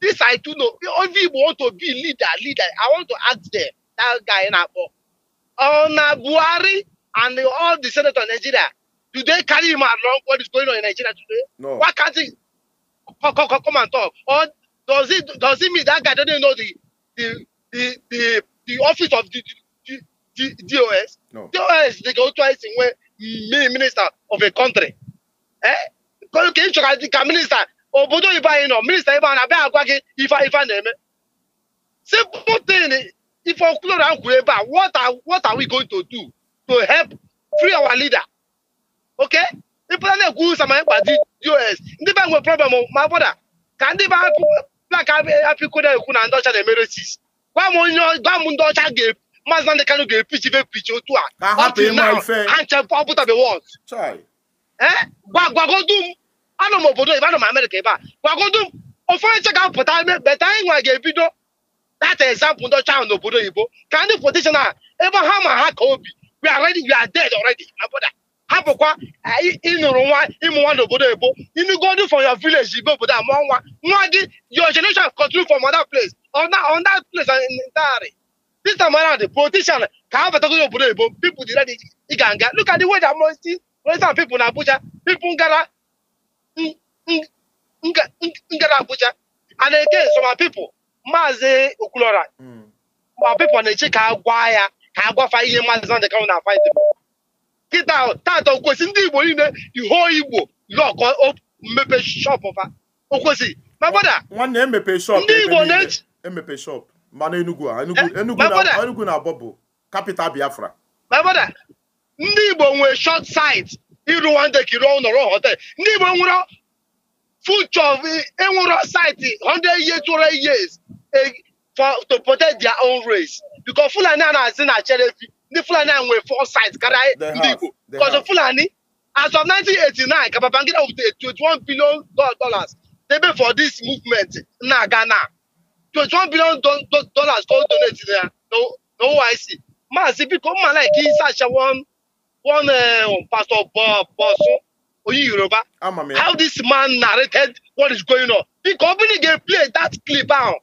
This I do know. If you want to be leader, leader, I want to ask them, that guy in Abo. On Buhari and all the senators in Nigeria, do they carry him along what is going on in Nigeria today? No. Why can't he come, come, come and talk? Or does it does it mean that guy doesn't know the the the the, the office of the, the, the, the DOS? No. DOS they go twice in where minister of a country. Eh? Can you minister obodo ibe anyị nọ minista ibe a abịa agwa gị ife ife na-eme simple ife okwuloro ahụ kwuru ebe a what are what are we going to do to help free our leader ok ịpụta na-ekwu ụsa ma ịkwa u.s. ndị be nwe problem ma bụda ka ndị be plak apịkona ekwu na ndị ọcha na-emere sis gwa m onye gwa m ndị ọcha ga maazị Nnamdị Kanụ ga-epichi ife pichi otu a gwa eh? gwa gwagodu m anọ m obodo ibe anọ m amerịka ebe a gwagodu ụfọdụ nche ga-apụta beta anyị nwa ga-ebido data ezampụ ndị ọcha ahụ n'obodo oyibo ka ndị pụtishọn a ebe ha ma ha ka obi we are ready we are dead already my brother hapụkwa ịnụrụ nwa ịmụ nwa n'obodo oyibo inugodu from your village ibe obodo a nwa nwa gị your generation continue from other place on that, on that place entirely uh, this time around the politician ka ha batago n'obodo oyibo people dị ready ịga nga look at the way that most people na Abuja people gara ngara Abuja and again Soma pipo. maazị Okwulora ma hmm. pipo na-eche ka a gwa ya ka a ihe maazi Nnamdi Kanu na fight kịta tata okwesị ndị Igbo niile iho Igbo lọkọ mmepe shop fa okwesị ma nwanne emepe shop. ndị Igbo na-eche emepe shop. mana Enugu a Enugu eh, na abọ bụ Biafra ndị Igbo nwee short sight ịrụwande ka ịrụọ nọrọ hotel ndị Igbo nwụrọ future ịnwụrọ site 100 years 200 e, years to protect their own race because Fulani a na-asị na cherefi ndị Fulani a nwere foresight karịa e, ndị Igbo because Fulani as of 1989 ka Babangida wepụtara 21 billion dollars debe for this movement na Ghana 21 billion dollars ka o donate na OIC maazị biko mma like ịsachawa one oh, um, Pastor Bosun Oyin Yoruba, ah, how this man narrated what is going on. The company they play that clip out.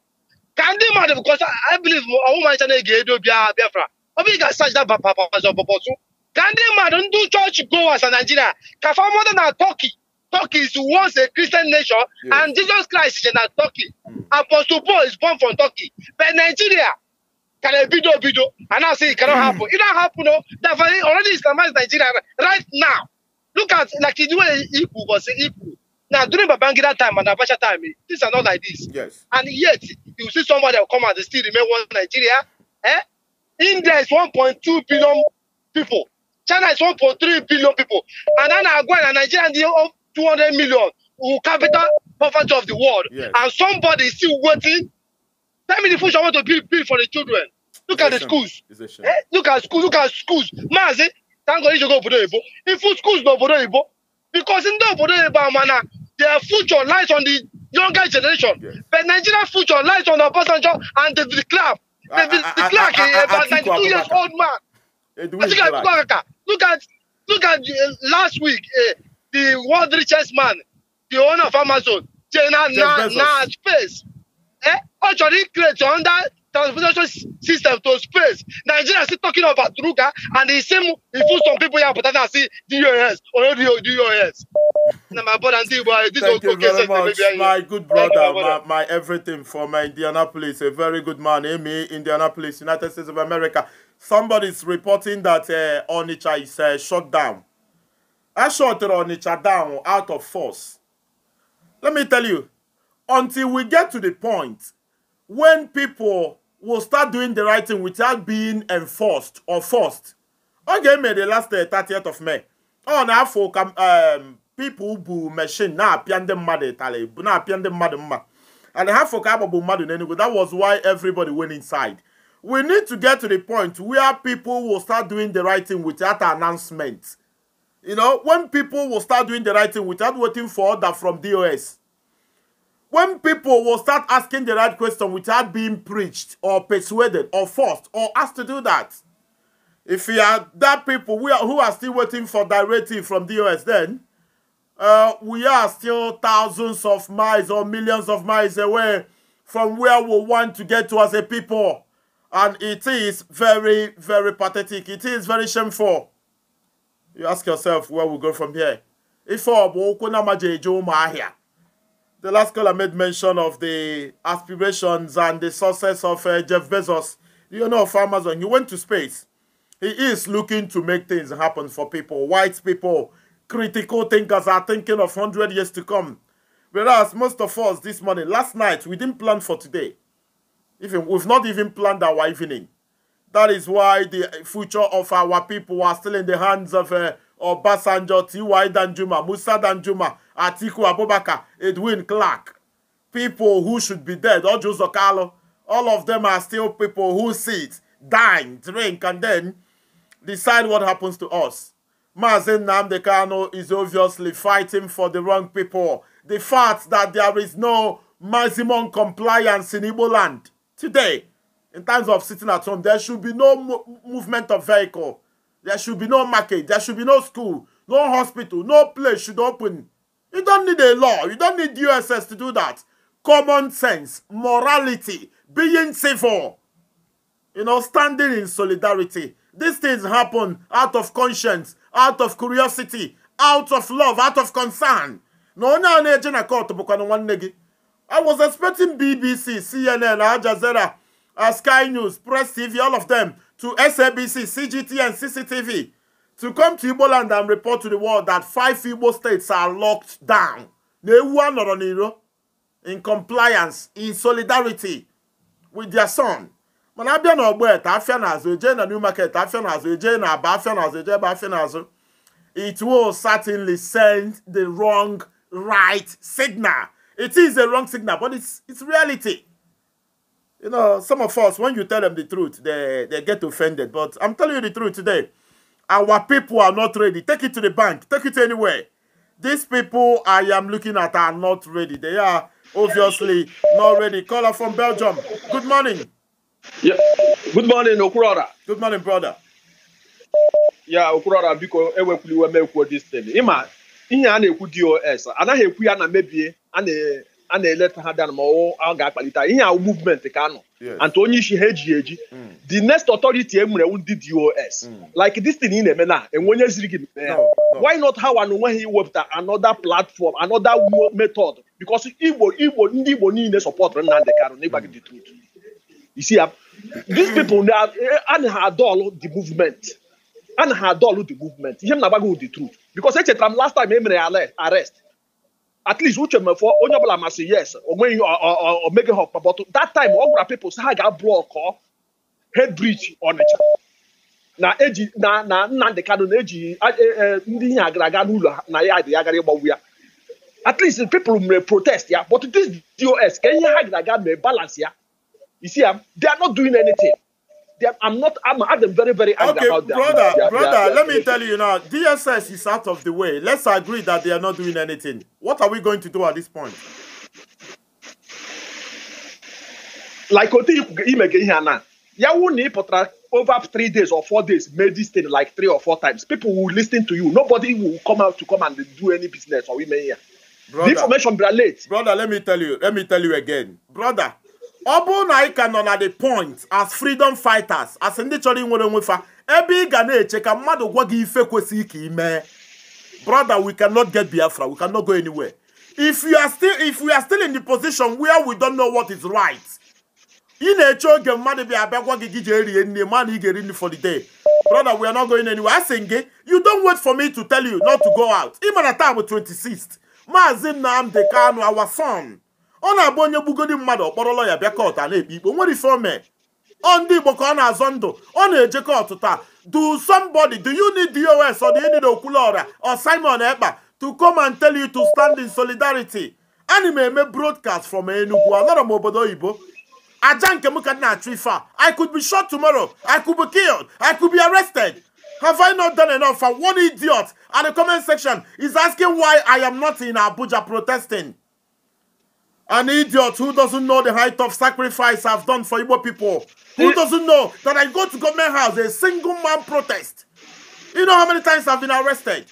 Can they matter? Because I, believe a woman channel Gedo Biafra. I think I searched that Papa Pastor Bosun. Can they matter? Do church goers in Nigeria? Can far more than Turkey? Turkey is once a Christian nation, yes. and Jesus Christ is in Turkey. Mm. Apostle Paul is born from Turkey. But Nigeria, Can a bido bido? And now say it cannot happen. It don't happen, no. They've already Islamized Nigeria right now. Look at like the way Ibu was Ibu. Now during Babangida time and Abacha time, things are not like this. Yes. And yet you see somebody will come out and still remain one Nigeria. Eh? India is 1.2 billion people. China is 1.3 billion people. And then I go and Nigeria and the 200 million who capital poverty of the world. Yes. And somebody is still waiting That means the food I want to build, build for the children. Look it's at the schools. Eh? Look at schools. Look at schools. Mazi, thank God you go for the Igbo. If schools no the Igbo, because in the obodo Igbo amana, their future lies on the younger generation. Yes. But Nigeria's future lies on Obasanjo and the, the club. The, the, the clerk is about 92 years old man. Look at look at look at uh, last week uh, the world richest man, the owner of Amazon, Jenna Nas face. Eh? Actually creates under transportation system to space. Nigeria is still talking about Druga and the same he put some people here, but I see DUS or not DUS. my brother, this Thank you very much, my good brother, my, my everything from Indianapolis, a very good man, Amy, eh, Indianapolis, United States of America. Somebody's reporting that uh, is uh, eh, shut down. I shut Onicha down out of force. Let me tell you, until we get to the point when people will start doing the right thing without being enforced or forced. Okay, May the last uh, 30th of May. Oh, now for ka um, people who machine now, apia ndị mmadụ Now na na-apịa ndị mmadụ mma and ha fọ ka agbagbu anyway. that was why everybody went inside we need to get to the point where people will start doing the right thing without announcement you know when people will start doing the right thing without waiting for order from DOS when people will start asking the right question without being preached or persuaded or forced or asked to do that, if you are that people we are, who are still waiting for directive from DOS then, uh, we are still thousands of miles or millions of miles away from where we want to get to as a people. And it is very, very pathetic. It is very shameful. You ask yourself where we go from here. If here the last caller made mention of the aspirations and the success of uh, Jeff Bezos, you know, of Amazon. He went to space. He is looking to make things happen for people. White people, critical thinkers are thinking of 100 years to come. Whereas most of us this morning, last night, we didn't plan for today. Even We've not even planned our evening. That is why the future of our people are still in the hands of uh, Ọbásanjọ́ T.Y. Danjuma Musa Danjuma Atiku Abubakar Edwin Clark people who should be dead Ojo Zokalo all of them are still people who sit dine drink and then decide what happens to us Mazen Namdekano is obviously fighting for the wrong people the fact that there is no maximum compliance in Igbo land today in terms of sitting at home there should be no movement of vehicle there should be no market. There should be no school, no hospital, no place should open. You don't need a law. You don't need USS to do that. Common sense, morality, being civil, you know, standing in solidarity. These things happen out of conscience, out of curiosity, out of love, out of concern. No, no, no, I was expecting BBC, CNN, Al Jazeera, uh, Sky News, Press TV, all of them to SABC, CGT, and CCTV to come to Igbo land and report to the world that five Igbo states are locked down. In compliance, in solidarity with their son. mana no n'ọgbọ eta afịa n'azụ new market afịa n'azụ eje na aba afịa n'azụ eje ebe it will certainly send the wrong right signal it is a wrong signal but it's, it's reality You know, some of us, when you tell them the truth, they, they get offended. But I'm telling you the truth today. Our people are not ready. Take it to the bank. Take it anywhere. These people I am looking at are not ready. They are obviously not ready. Caller from Belgium. Good morning. Yeah. Good morning, Okurara. Good morning, brother. Yeah, Okurara Okurora, biko ewepụliwe mekwu this thing. Ịma, ihe a na-ekwu DOS, anaghị ekwu ya na mebie, a a na-eleta ha down ma ọwụ a ga-akpalite ihe ahụ movement ka nọ anta onye isi ha eji eji hmm. the next authority e nwere ndị dos hmm. like this thing ị na-eme na enwe onye ziri gị eh, why not ha wa na onwe ha iwepụta another platform another method because igbo igbo ndị igbo niile sọpọtụrụ Nnamdị Kanụ n'ịgwa gị the truth you see ah, these people ana eh, ha adọlụ the movement ana ha adọlụ the movement ihe m na-agwa the truth because echetara m last time e mere ya arrest at least uche mefọ onye ọbụla masị yes onweghị omege ha but that time ọ gwara people sị ha ga-ablọkọ head bridge Ọnịcha na eji na na Nnamdị Kanụ na-eji e, e, ndị ihe agara aga n'ụlọ na ya dị ya gara ịgbanwu ya at least people may protest ya but this dos ka ihe ha gara aga mee balance ya isi ya they are not doing anything. I'm not. I'm, I'm very, very angry okay, about Brother, brother, let me tell you now. DSS is out of the way. Let's agree that they are not doing anything. What are we going to do at this point? Like what him again here now. Yeah, we need over three days or four days made this thing like three or four times. People will listen to you. Nobody will come out to come and do any business or women here. Brother, the information be late. Brother, let me tell you. Let me tell you again, brother. ọ bụrụ na anyị ka nọ na the point as freedom fighters as ndị chọrọ inwere onwe fa ebe ị ga na-eche ka mmadụ gwa gị ife kwesịghị ka imee brother we cannot get biafra we cannot go anywhere if you are still if we are still in the position where we don't know what is right ị na-eche oge mmadụ bịa abịa gwa gị gị jee rie nne ma na ị ga-eri nri for the day brother we are not going anywhere asị gị you don't wait for me to tell you not to go out ị mara taa bụ 26th maazị Nnamdi Kanu our son ọ na-abụ onye gbugodi mmadụ ọkpọrọlọ ya bịa kọọtụ a na-ekpe ikpe nwere ife ome ọ ndị Igbo ka ọ na-azọ ndụ ọ na-eje kọọtụ taa do somebody do you need DOS or do you need Okwuluora or Simon Ekpa to come and tell you to stand in solidarity ana m eme broadcast from Enugu anọrọ m obodo oyibo aja nke m ka na-achụ ife a I could be shot tomorrow I could be killed I could be arrested Have I not done enough? for one idiot And the comment section is asking why I am not in Abuja protesting. An idiot who doesn't know the height of sacrifice I've done for Igbo people. Who doesn't know that I go to government house, a single man protest. You know how many times I've been arrested?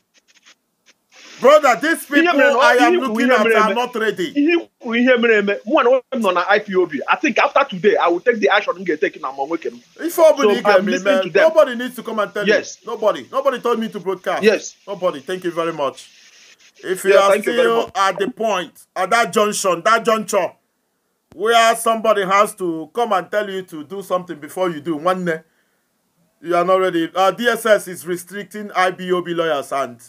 Brother, these people I am looking at are not ready. I think after today, I will take the action and get taken among Wickham. If nobody, nobody needs to come and tell yes. me. Yes. Nobody. Nobody told me to broadcast. Yes. Nobody. Thank you very much. If you yeah, are still at the point, at that junction, that juncture, where somebody has to come and tell you to do something before you do, one day, you are not ready. Uh, DSS is restricting IBOB lawyers, and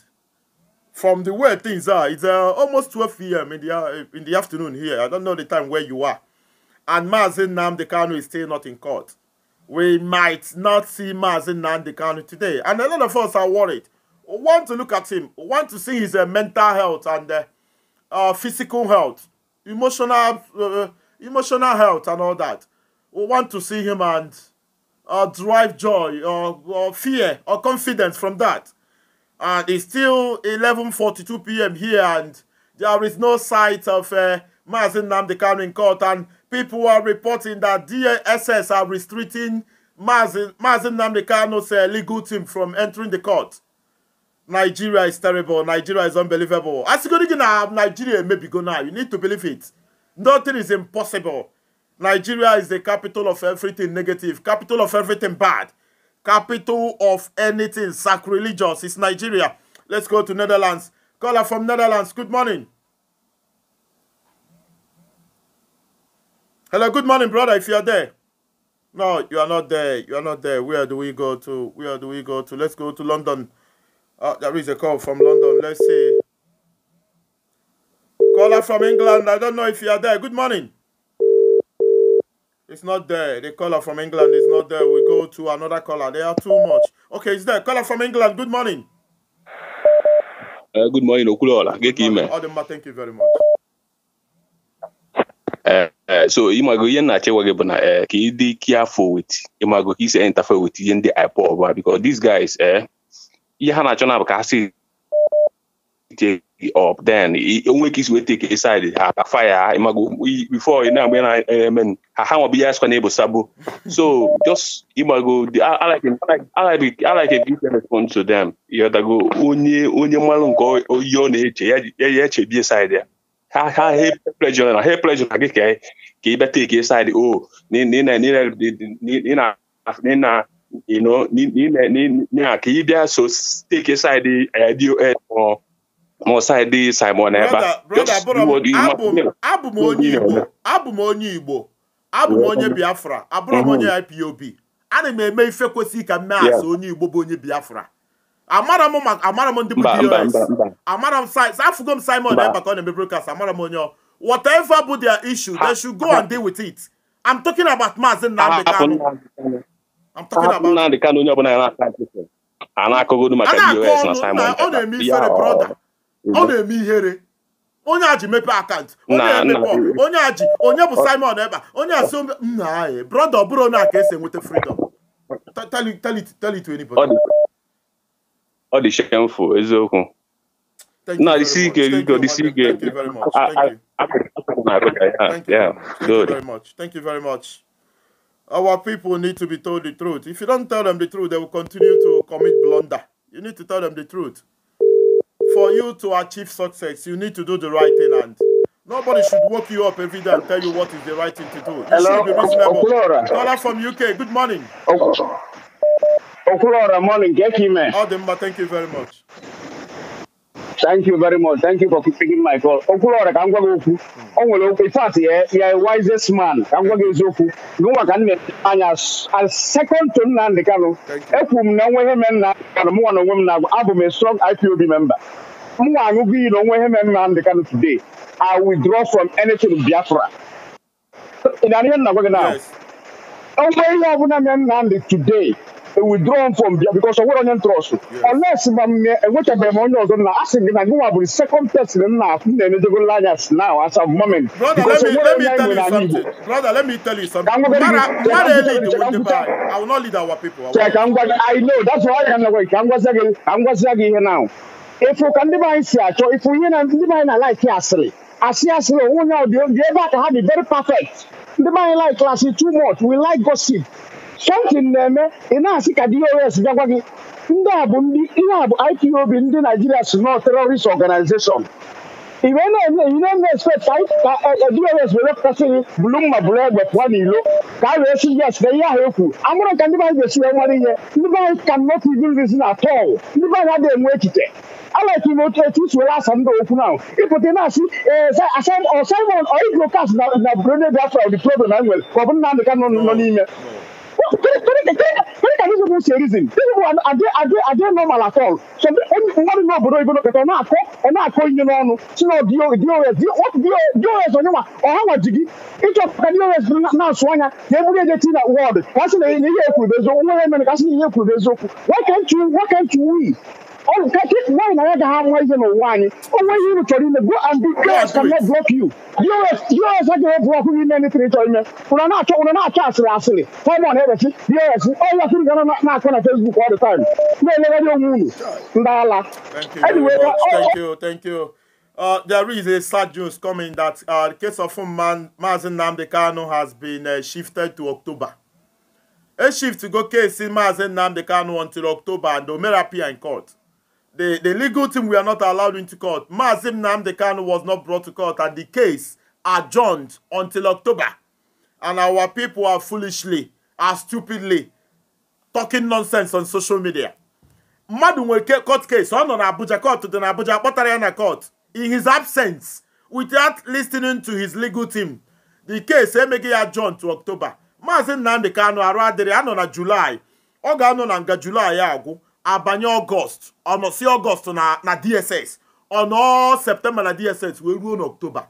from the way things are, it's uh, almost 12 p.m. In the, uh, in the afternoon here. I don't know the time where you are. And Mazin Namdekanu is still not in court. We might not see Mazin Namdekanu today. And a lot of us are worried want to look at him, want to see his uh, mental health and uh, uh, physical health, emotional, uh, emotional health and all that. We want to see him and uh, derive joy or, or fear or confidence from that. And it's still 11.42 p.m. here and there is no sight of uh, Mazin Namdekanu in court and people are reporting that DSS are restricting Mazin, Mazin Namdekano's uh, legal team from entering the court. Nigeria is terrible. Nigeria is unbelievable. As you go now, Nigeria maybe go now. You need to believe it. Nothing is impossible. Nigeria is the capital of everything negative, capital of everything bad, capital of anything sacrilegious. It's Nigeria. Let's go to Netherlands. Caller from Netherlands. Good morning. Hello, good morning, brother. If you are there. No, you are not there. You are not there. Where do we go to? Where do we go to? Let's go to London. Oh, ah, there is a call from London. Let's see. Caller from England. I don't know if you are there. Good morning. It's not there. The caller from England is not there. We go to another caller. They are too much. Okay, it's there. Caller from England. Good morning. Uh, good morning, Okulola. Good thank you very much. Uh, uh, so imago ihe na-achịwa gị bụ na ka ị dị careful with imago he's isi interfere with ihe ndị because these guys eh, ihe ha na-achọ na-abụ ka ha si up then isi wee take ha afa ya before na na-eme ha ha nwabụ ya asịkwa na so just give to them onye onye nke oyi ọ na-eche ya side ya ha ha pleasure na ha pleasure na gị ka ka take o oh, na you know, ka ị bịa so steki saịdị DOS ma saịdị Simon ebe abụ m onye Igbo abụ m onye Igbo abụ m onye Biafra abụrụ m mm-hmm. onye IPOB ana m eme ife kwesịrị ka m mee asị onye Igbo bụ onye Biafra amara m ndị bụ DOS amara m afụgo m Simon ebe ka ọ na-eme brokast amara m onye ọ whatever bụ their issue they should go and deal with it I'm talking about Maazị Nnamdi Kanu I'm talking about Nnamdi Kanu onye ọbụla na-asa nkịtị a na-akụgodu maka US na Simon ọ na-eme ihere brọda mhm. ọ na-eme ihere onye a ji mepe akaụntụ onye emepe onye a ji onye bụ Simon ebe a onye asị nna anyị brọda ọ bụrụ onye a ka esi tell it to anybody ọ dị shameful eziokwu na disi ike biko disi ike Thank you very much. Thank you very much. Our people need to be told the truth. If you don't tell them the truth, they will continue to commit blunder. You need to tell them the truth. For you to achieve success, you need to do the right thing. And nobody should wake you up every day and tell you what is the right thing to do. You Hello? should be reasonable. Caller from UK, good morning. Okulora, morning. Get him, man. Eh? Ademba, oh, thank you very much. Thank you very much. Thank you for picking my call. Okulora, I'm going to hmm. ọ nwere okwu in fact ya wisest man ka m gwa gị eziokwu gịnwa ka nne anya as second to Nnamdị Kanụ ekwuru m na onwe ihe mere Nnamdị Kanụ mụ nwa na onwe m na-agwa abụ m a strong IPOB member m nwa aṅụgo iyi na onwe ihe mere Nnamdị today I withdraw from anything Biafra ị na-anụ ihe nna gwa gị na onwe ihe ọbụla mere Nnamdị today withdrawn from there because ọwụrụ onye ntrọstụ ọles ma mme enwechabeghị eh, m onye ọzọ na asị gị na gịnwa bụrụ second test na nna m na-enedegolo anya now as a moment because ọwụrụ onye nwere anyị Igbo brother let me tell you something mara elid with the bar I will not lead our people ka m gwa gị I know that's why I can ka m gwazia gị ka m gwazia gị ihe now efu ka ndị be anyị si achọ efu ihe na ndị be anyị na laiki asịrị asị asịrị onwe onye ọ dị ebe very perfect The man anyị like class too much we like gossip something na-eme ị na-asị ka DOS bịakwa gị ndị a bụ ndị ihe a bụ IPOB ndị Naijiria si nọ terrorist organization iwe na-eme ị na-eme expect ka e, e, DOS wepụtasị gị bulu mma bụrụ egbe pụọ n'ilo ka a wee si yes na ihe ahụ ekwu amụrụ ka ndị be anyị ga-esi wee nwere ihe ndị be anyị ka not even reason at all ndị be anyị adịghị enwe echiche alek na otu etu isi were asa ndị okwu ahụ ịpụta na-asị eh, Simon oibrocast na Brunei Biafra dị problem na nwere ka ọ bụ na amịka nọ n'ime No, correct, correct, bụ Correct, I don't know say People are, are, are, are normal at all? So akọ know about even better. Now, and now, calling you know, so no, DOS, what DOS on you are, or how much you It of DOS now, Swanya, every day in that world. What's in Why can't you, why can't you All on Why are another have one reason or one. Oh, when you to him, go and be clear cannot block you. You are you are such a block you in anything to him. Una na to una na chance rasili. Come on, everything. You are all your think are not not on Facebook all the time. No, no, no, no. Ndala. Thank you. Anyway, uh, oh, thank you, thank you. Uh, there is a sad news coming that uh, the case of man Mazin Namdekano has been uh, shifted to October. A shift to go case in Mazin Namdekano until October and Omerapia in court. the, the legal team were not allowed into court. Mazim Namdekan was not brought to court and the case adjourned until October. And our people are foolishly, are stupidly talking nonsense on social media. Mmadụ nwere court case, ọ nọ Abuja court dị na Abuja kpọtara na court. In his absence, without listening to his legal team, the case emeghị ya adjourned to October. Maazị Nnamdi Kanu there. adịrị na July. Oga no na nga July agwụ. abanye ọgọst ọnọsi ọgọst na na dss ọnọ septemba na dss wee ruo n'oktoba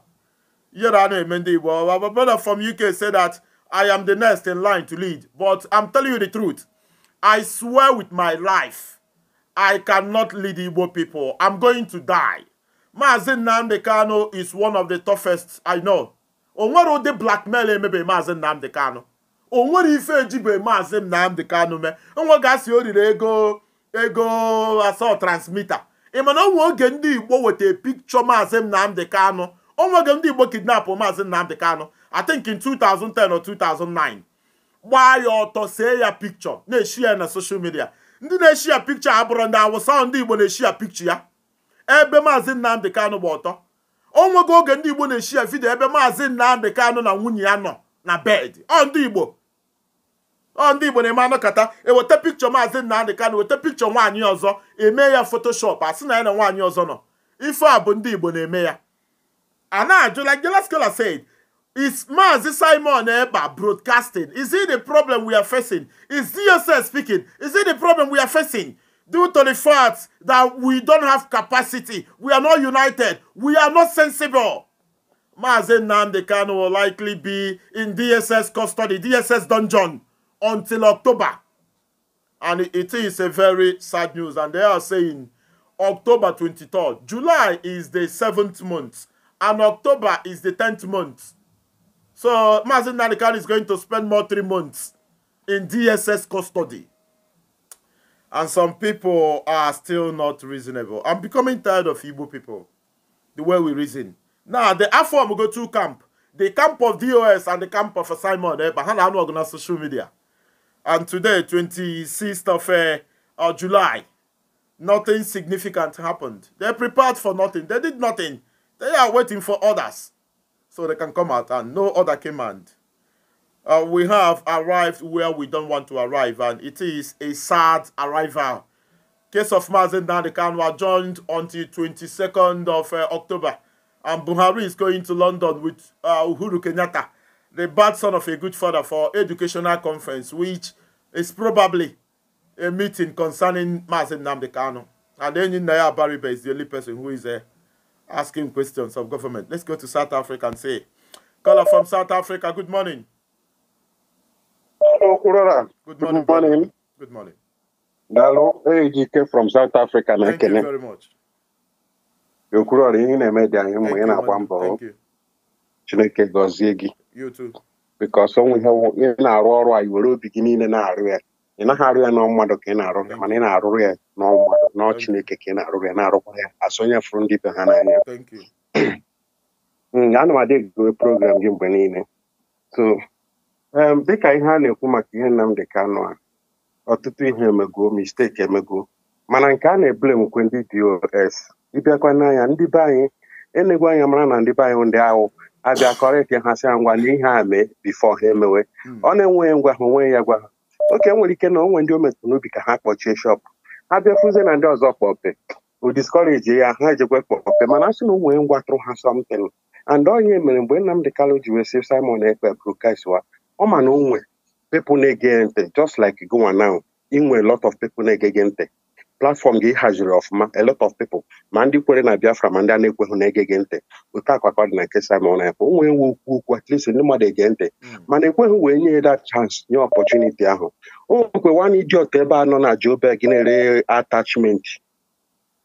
yere a na-eme ndị igbo my brother from uk say that i am the next in line to lead but i'm telling you the truth i swear with my life i cannot lead igbo people i'm going to die maazi nnamdi kano is one of the toughest i know o nwere ụdị blackmail emebe maazi nnamdi kano o nwere ife ejibe maazi nnamdi kano mee nwa gasị o riri ego ego asọ transmita ị mana onwe oge ndị igbo weta pikchọ maazị Nnamdi Kanu onwe oge ndị igbo kidnapụ maazị Nnamdi Kanu I think in 2010 or 2009 gbaa ya ọtọ see ya pikchọ na-eshi ya na soshal midia ndị na-eshi ya pikchọ abụrụ ndị awụsa ndị igbo na-eshi ya pikchọ ya ebe maazị Nnamdi Kanu gba ọtọ onwego oge ndị igbo na-eshi ya vidio ebe maazị Nnamdi Kanu na nwunye ya nọ na bed ọ ndị igbo ọ ndị Igbo na-eme anọkọta eweta pikchọ maazị Nnamdị Kanụ weta pikchọ nwaanyị ọzọ eme ya fotoshop asị na ya na nwaanyị ọzọ nọ ife a bụ ndị Igbo na-eme ya a na-ajụla Gela Scholar said is maazị Simon Ekpa broadcasting is it the problem we are facing is DSS speaking is it the problem we are facing due to the fact that we don't have capacity we are not united we are not sensible maazị Nnamdị Kanụ will likely be in DSS custody DSS dungeon until October. And it is a very sad news. And they are saying October 23rd. July is the seventh month. And October is the 10th month. So Mazin Nanikan is going to spend more three months in DSS custody. And some people are still not reasonable. I'm becoming tired of Igbo people. The way we reason. Now, the Afro go to camp. The camp of DOS and the camp of Simon. Eh, but how are social media? and today 26th of uh, uh, July, nothing significant happened. They prepared for nothing. They did nothing. They are waiting for others so they can come out and no other command. Uh, we have arrived where we don't want to arrive and it is a sad arrival. Case of Mazen Nadikan were joined until 22nd of uh, October and Buhari is going to London with uh, Uhuru Kenyatta the bad son of a good father for educational conference, which is probably a meeting concerning Mazin Namdekano. And then in Naya Bariba is the only person who is uh, asking questions of government. Let's go to South Africa and say, caller from South Africa, good morning. Hello, Kurara. Good morning. Good morning. Good morning. Hello, AGK from South Africa. Thank you very much. Yokurori, ị na-eme bikọs ọ nweghị ị na-arụ ọrụ a i were obi gị niile na-arụ ya ị naghị arụ ya n'ọ mmadụ ka ị na-arụ ya mana ị na arụ ya n'ọ mmadụ n'ọ Chineke ka ị na arụ ya na-arụkwa ya asonye fụrụ ndị be ha n'anya ana m adị gịgowe program gị mgbe niile so dịka ihe a na-ekwu maka ihe Nnamdi ka a ọtụtụ ihe emego misteki emego mana nke a na-ebulemkwe ndị dos ịbịakwa n'anya ndị be anyị enegwu anya mara na ndị be anyị ndị ahụ abịakọrọ ịpịahasị ya ngwa n'ihe a mee bifo ha emewe hmm. ọ na-enweghị ngwa ha onweghị ya gwa ha oke nwere ike na onwe ndị o metụrụ n'obi ka ha kpọchie shọpụ ha bịafuzie na ndị ọzọ kpọpe o diskọreji ya ha ejekwe kpọpe mana asị na onwere ngwa tụrụ ha sọmtin and onye mere mgbe Nnamdị Kalụ ji wee si Simon Ekpe bụrụ kaiswa ọ ma na onwe people na-ege ntị just like gụwa now inwe lot of people na-egege ntị platfọm gị haziri ọfụma a lot of people ma ndị kwere na Biafra ma ndị a na-ekweghị na-ege gị ntị otu akwa ka dị na nke Simon Ekpa onwe nwe okwu okwu at least ndị mmadụ ege ntị hmm. mana ekweghị wee nye that chance nye opportunity ahụ o nwekwe nwanne iji otu ebe a nọ na Joburg na-ere attachment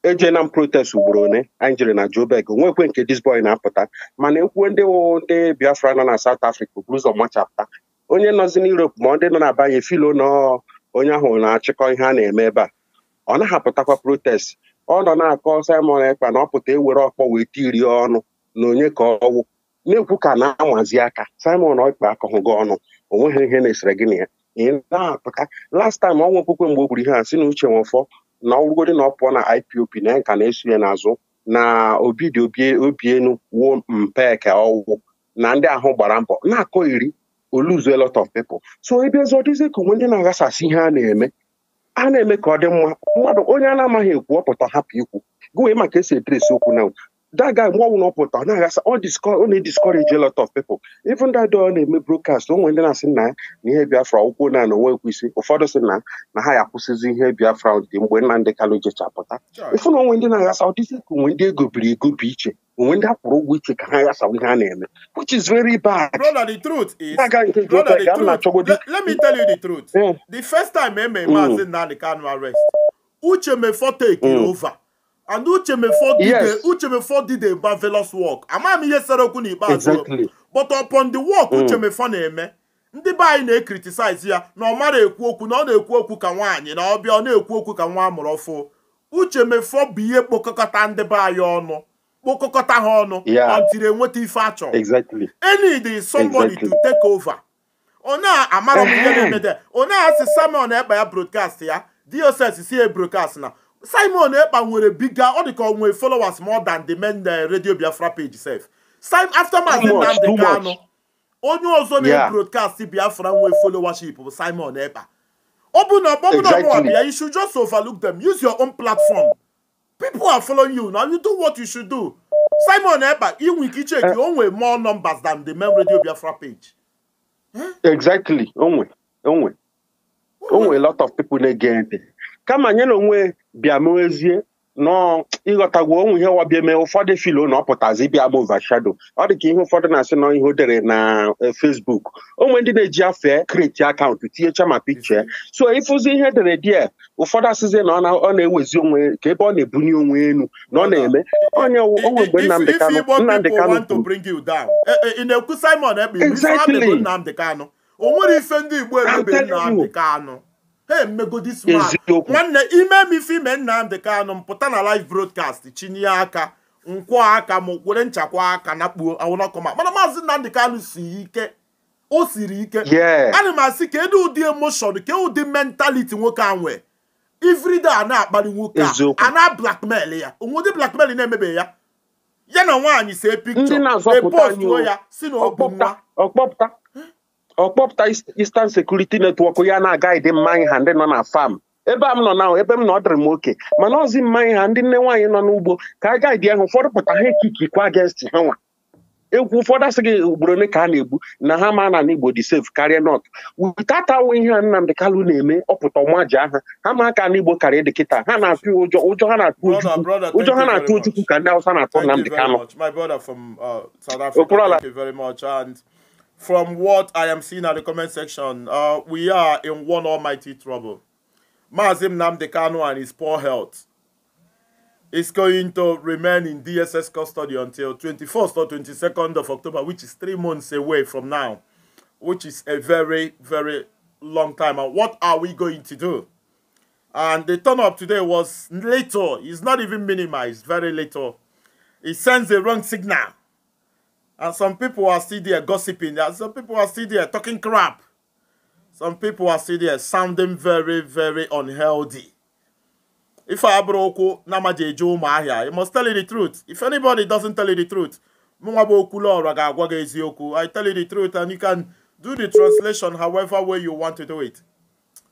eje na protest ugboro one anyị na Joburg onwekwe nke this boy na-apụta mana ekwuo ndị ndị Biafra nọ na South Africa buru machapụta onye nọzi na Europe ma dị nọ na-abanye filo nọ onye ahụ na-achịkọ ihe a na-eme ebe a ọ na-ahapụtakwa protest ọ nọ na-akọ Simon Ekpa na ọ pụta ewere ọkpọ wee iri ọnụ na onye ka ọwụ na-ekwu ka na-amazi aka Simon Ekpa akọghị gị ọnụ onweghị ihe na-esere gị na ya ị na-apụta last time ọnwa okwukwe mgbe o gburu ihe a si na uche nwefọ na ọrụgodi na ọ pụọ na IPOP na ya nka na-eso ya n'azụ na obi dị obi enu wuo mpe ọwụ na ndị ahụ gbara mbọ na-akọ iri oluzu lot of people so ebe ka onwe ndị na-aghasasị ihe a na-eme a na-eme ka ọ dị mma mmadụ onye a na-amaghị ekwu ọpụta hapụ ikwu gụwe maka esi edresi okwu na daga mgbe ọnwụ na ọpụta ọ na-aghasa ọ na-ediscourage a lot of people even that ọ na-eme broadcast onwe ndị na-asị na na ihe biafra ụkwụ na na onwe ekwisi ụfọdụ sị na na ha ya akwụsịzi ihe biafra dị mgbe nna ndị kalụ jechapụta ịfụ na onwe ndị na-aghasa ọ ka onwe ndị egobiri egobi iche onwe ndị akwụrụ ụgwọ iche ka ha ghasawa ihe a na-eme which is very bad. brother the truth is let, me tell you the truth first time ememme arrest uche mefo take mm. over and uche did work amaghị m ihe sere okwu n'ikpeazụ but upon the work mm. uche mefo na-eme ndị be anyị na-ekritisize ya na ọ mara ekwu okwu na ọ na-ekwu okwu ka nwaanyị na ọbịa ọ na-ekwu okwu ka nwa amụrụ uche bụ ihe kpokọkọta ndị be anyị ọnụ kpokọkọta ha ọnụ until enweta ife achọ enid somebody to take over onye amara m ihe na-emede onye asị Simon ekpa ya broadcast ya dss si broadcast na Simon ekpa nwere biga ọ dị ka ọ nwere followers more than the men eh, Radio Biafra page sef sim after Maazị Nnamdi Kanu onye ọzọ na broadcast Biafra nwee followership bụ Simon ekpa ọ bụ na ọbọbụna ọbụwa bịa you should just overlook them use your own platform People are following you. Now you do what you should do. Simon Eba, Iwin Kichek, you own way more numbers than the Mem Radio Biafra page. Huh? Eh? Exactly. Onwe. Onwe. Onwe a lot of people get again. Come on, you know, Biamoezie nọọ ịghọtagwo onwe ihe wabịa eme ụfọdụ filo na ọ pụtazi ịbịa bụ vashado ọ dị ka ihe ụfọdụ na-asị na ihe o dere na eh, Facebook onwe ndị na-eji afe kreti akaụntụ tinyecha ma pikche so ịfụzi ihe edere die ụfọdụ asịzi na ọ na-ewezi onwe ka ebe ọ na-ebunye onwe elu na ọ na-eme onye onwe mgbe Nnamdị Kanụ eh, eh, ife ndị Igbo Kanụ ha emegodi smart nwanne ime m ife ime Nnamdi Kanu m pụta na live broadcast chinye aka nkwọ aka m were nchakwa aka na kpuo awụnọkọma mana maazị Nnamdi Kanu si ike o siri ike ana m asị kedu ụdị emoshon ka ụdị mentaliti nwoke a nwee ifrida a na-akpali nwoke a na blackmail ya onwe ụdị blackmail na emebe ya ya na nwaanyị see pikchọ epostuo ya si na nwa ọkpọpụta istan sekuriti netwọk ya na-aga ịdị mmanya ha ndị nọ na fam ebe a m nọ na ebe m na ọ dịrị m oke mana ọzi mmanya ha ndị nne nwaanyị nọ n'ugbo ka a gaidị ahụ ụfọdụ pụta ha ekikikwa against ha nwa egwu ụfọdụ gị ugboro ole ka a na-egbu na ha ma na n'Igbo dị sef karịa nọt witatawo ihe a Nnamdị Kalụ na-eme ọpụta ọmaji aha ha ma aka n'Igbo karịa dị kịta ha na-atụ ụjọ ụjọ ha na-atụ ụjọ ha na-atụ Ojukwu ka ndị Hausa na-atụ Nnamdị Kalụ from what I am seeing at the comment section, uh, we are in one almighty trouble. Mazim Namdekano and his poor health is going to remain in DSS custody until 21st or 22nd of October, which is three months away from now, which is a very, very long time. And what are we going to do? And the turn up today was little. It's not even minimized, very little. It sends the wrong signal and some people are still there gossiping. some people are still there talking crap. Some people are still there sounding very, very unhealthy. If I broke mahia. you must tell you the truth. If anybody doesn't tell you the truth, I tell you the truth, and you can do the translation however way you want to do it.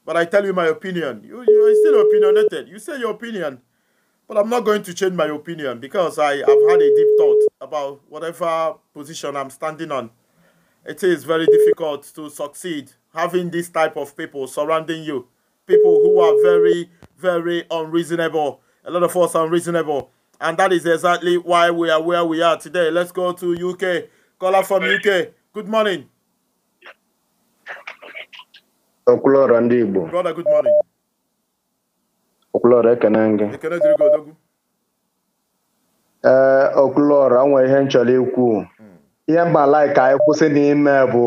But I tell you my opinion. You, you're still opinionated. You say your opinion. But I'm not going to change my opinion because I have had a deep thought about whatever position I'm standing on. It is very difficult to succeed having this type of people surrounding you. People who are very, very unreasonable. A lot of us are unreasonable. And that is exactly why we are where we are today. Let's go to UK. Caller from UK. Good morning. Brother, good morning. okulora ekene gị ee eh, okulora nwe ihe nchọrọ ikwu ihe mba ka anyị kwụsị n'ime bụ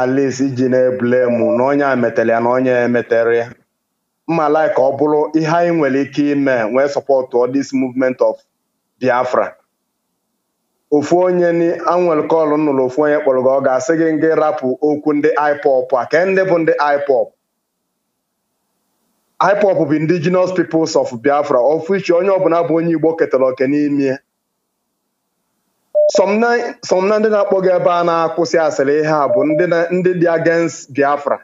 Alice iji na-ebulemu na onye a metere ya na onye emetere ya mmalai ka ọ bụrụ ihe anyị nwere ike ime nwee sọpọt this movement of Biafra ofu onye anwere kọlụ nụrụ ofu onye kpọrọ gị ọ ga-asị gị gị rapụ okwu ndị IPOB a ke ndị bụ ndị IPOB ipop bụ indigenous peoples of Biafra of which onye ọbụla bụ onye Igbo ketara oke n'ime somna na ndị na-akpọ gị ebe a na-akwụsị asịrị ihe a bụ ndị dị against Biafra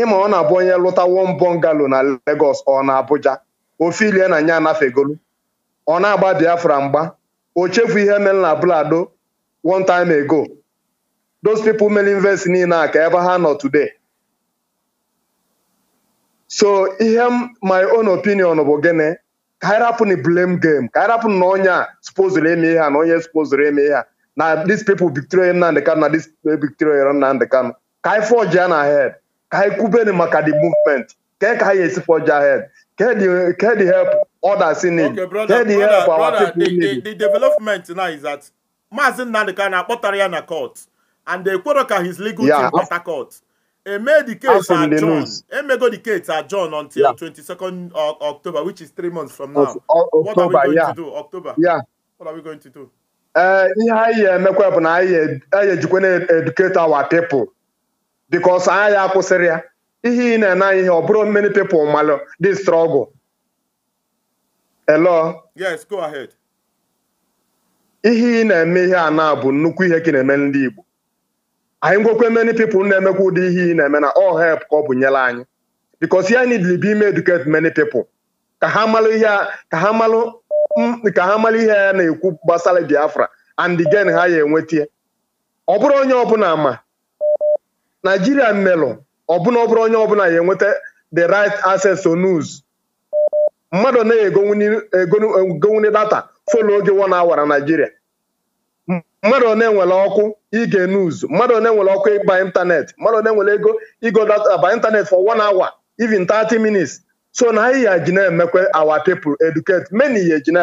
ịma ọ na-abụ onye lụta one bungalow na Lagos ọ na Abuja ofe ilie na nya anafegolu ọ na-agba Biafra mgba o chefu ihe mere na Blado one time ago those people mere invest niile a ka ebe ha nọ today so ihe m my own opinion bụ gịnị ka anyị rapụ na blame game ka anyị na onye a supozuru eme ihe a na onye supozuru eme ihe a na these people Victoria Nnamdi Kanu na these people Victoria Nnamdi Kanu ka anyị forge ya na head ka anyị kwubeni maka the movement kee ka anyị esi forge ahead kee the help others in need kee the help our people in need the development now is that Maazị Nnamdi Kanu akpọtara ya na court and ekwero ka his legal team kpọta court Eme the case at John. Emego the case at John until yeah. 22nd uh, October, which is three months from now. Of, of, what are we going yeah. to do? October. Yeah. What are we going to do? Eh, ihe anyị emekwa bụ na e-, anyị ejikwa na-educate our people because anyị akwụsịrị ya ihe ị na-ene ihe ọ bụrụ many people malụ dị struggle. Hello? Yes, go ahead. ihe ị na-eme ihe a na bụ nnukwu ihe ka na-eme ndị Igbo anyị ngwekwe many people na-emekwa ụdị ihe ị na-eme na all help ka ọ bụ nyela anyị because ya need be ime educate many people ka ha malụ ihe ha ya na-ekwu gbasara Biafra and gen ha ya enwetie ọ onye ọbụla ma Nigeria melụ ọbụna ọ bụrụ onye ọbụla ya enweta the right access to news mmadụ na-egonwuni data folo oge one na Nigeria mmadụ one nwere ọkụ ige news mmadụ one nwere ọkụ ịba ịntanetị mmadụ one nwere ego ịgo data by for one hour even 30 minutes so na anyị ya ji na-emekwa our people educate many ya ji na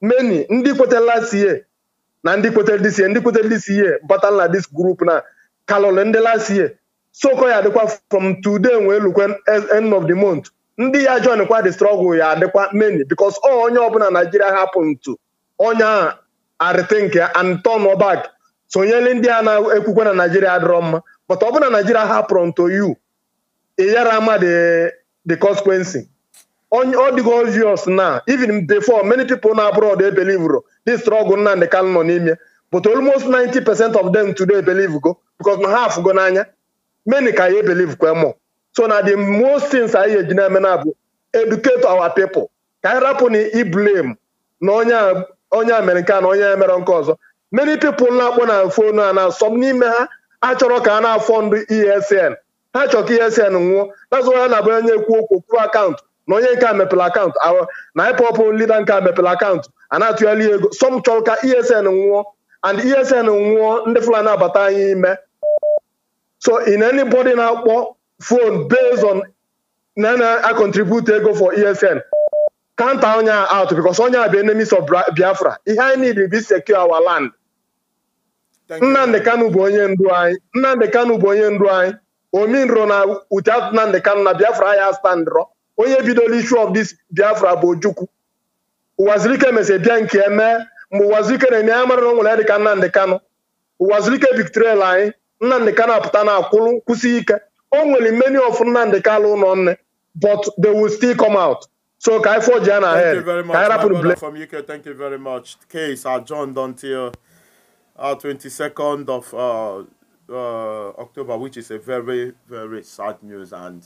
many ndị kwetara last year na ndị kwetara this year ndị kwetara this year battle na this group na kalọlị ndị last year soko ya adịkwa from today wee lukwe end of the month ndị ya join kwa the struggle ya adịkwa many because onye ọbụla Nigeria hapụ ntu onye a arịtị nke Anton Obak sonyele ndị a na-ekwukwe eh, na Naijiria adịrọ mma but ọ na Naijiria hapụrụ nto yu ịyara eh, ama the consequence ọ dịgo obvious na even before many people na abroad they believe this struggle Nnamdi Kanu nọ n'ime but almost 90 percent of them today believe go because na ha n'anya many ka ya believe kwe mọ so na the most things anyị eji na-eme na bụ educate our people ka anyị rapụ na i blame na onye onye Amerịka na onye emere nke ọzọ many people na-akpọ na fon a na-asọ n'ime ha achọrọ ka a na-afọ ndụ ESN ha chọrọ ka ESN e nwụọ nazụ ya na-abụ onye ekwu okwu akaụntụ na onye nke a mepere akaụntụ na ịpọpụ lida nke a mepere akaụntụ a na-atụghali ego sọm chọrọ ka ESN nwụọ and ESN nwụọ ndị Fulani abata anyị ime so in anybody na-akpọ phone based on na na ego for ESN counter onye out because onye a bụ enemies of Biafra ihe anyị niile bụ secure our land Nnamdị Kanụ bụ onye ndu anyị Nnamdị Kanụ bụ onye ndu anyị ominro na uche Nnamdị Kanụ na Biafra ya standro onye bidola issue of this Biafra bụ Ojukwu Ụwazirike mese bịa nke eme mgbe Ụwazirike na-enye ya mara na onwere ya dịka Nnamdị Kanụ Ụwazirike biktrel anyị Nnamdị Kanụ apụta na akwụlụ kwụsị ike o nwere many of Nnamdị Kanụ ụlọ nne but they will still come out So Kai for Jana. ahead? Thank you very much. I my from UK, thank you very much. Case uh, John until our 22nd of uh, uh, October, which is a very, very sad news. And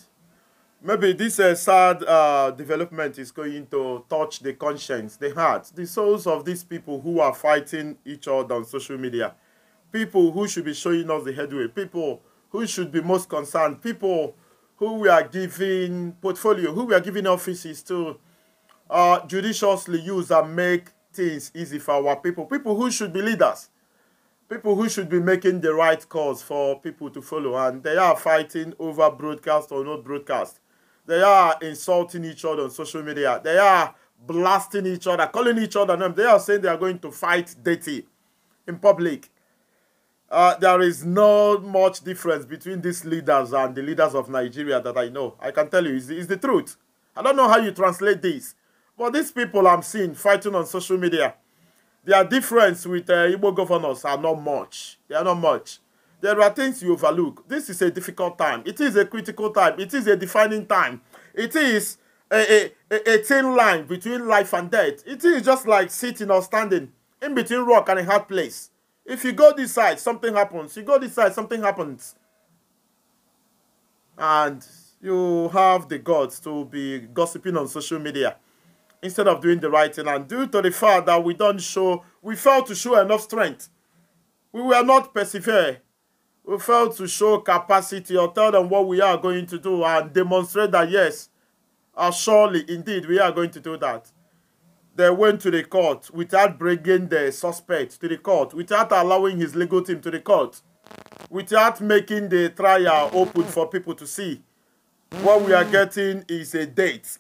maybe this uh, sad uh, development is going to touch the conscience, the heart, the souls of these people who are fighting each other on social media. People who should be showing us the headway. People who should be most concerned. People who we are giving portfolio, who we are giving offices to uh, judiciously use and make things easy for our people. People who should be leaders. People who should be making the right calls for people to follow. And they are fighting over broadcast or not broadcast. They are insulting each other on social media. They are blasting each other, calling each other names. They are saying they are going to fight dirty in public uh, there is not much difference between these leaders and the leaders of Nigeria that I know. I can tell you, it's, it's the truth. I don't know how you translate this, but these people I'm seeing fighting on social media, their difference with uh, Igbo governors are not much. They are not much. There are things you overlook. This is a difficult time. It is a critical time. It is a defining time. It is a, a, a thin line between life and death. It is just like sitting or standing in between rock and a hard place. If you go this side, something happens. You go this side, something happens. And you have the gods to be gossiping on social media instead of doing the right thing. And due to the fact that we don't show, we failed to show enough strength. We were not persevere. We failed to show capacity or tell them what we are going to do and demonstrate that yes, uh, surely indeed we are going to do that they went to the court without bringing the suspect to the court, without allowing his legal team to the court, without making the trial open for people to see. What we are getting is a date.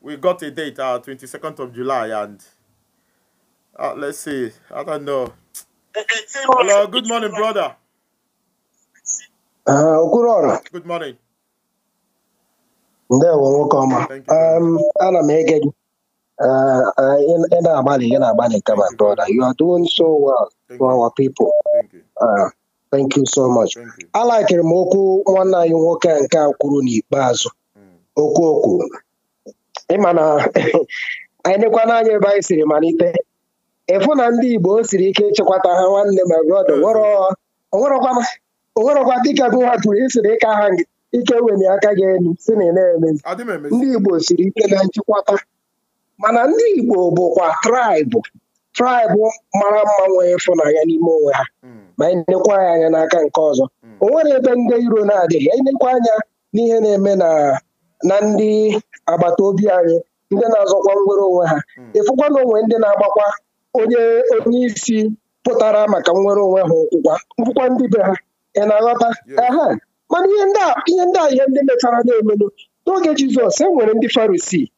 We got a date, uh, 22nd of July, and uh, let's see. I don't know. Hello, good morning, brother. Uh, good morning. Good morning. There, welcome. Um, and i ị na-agbalị ị na-agbalị kama brother you are doing so well for our people thank you uh, so much alakịrị m okwu nwanne anyị nwoke nke a kwuru n'ikpeazụ mm. okwu okwu ịma na anyị nekwana anya ebe anyị siri malite ịfụ na ndị Igbo siri ike ịchịkwata ha nwanne ma brother mm. onwerọkwa dịka gụnwa kwuru isiri ike aha ike weli aka gị elu si na na-emezi ndị Igbo siri ike na nchịkwata mana ndị Igbo bụkwa traịbụ traịbụ mara mma nwee ịfụnanya n'ime onwe ha hmm. ma anyị ya anya n'aka nke ọzọ hmm. o nwere ebe ndị iro na-adịghị anyị anya n'ihe na-eme na ndị agbata obi anyị ndị na-azọkwa nwere onwe ha hmm. ịfụkwa na onwe ndị na-agbakwa onye onye isi pụtara maka nwere onwe ha ụkwụkwa nkwụkwa ndị be ha ị na-aghọta aha mana ihe ndị a ihe ndị mechara na-emenụ n'oge Jizọs e nwere ndị Farisii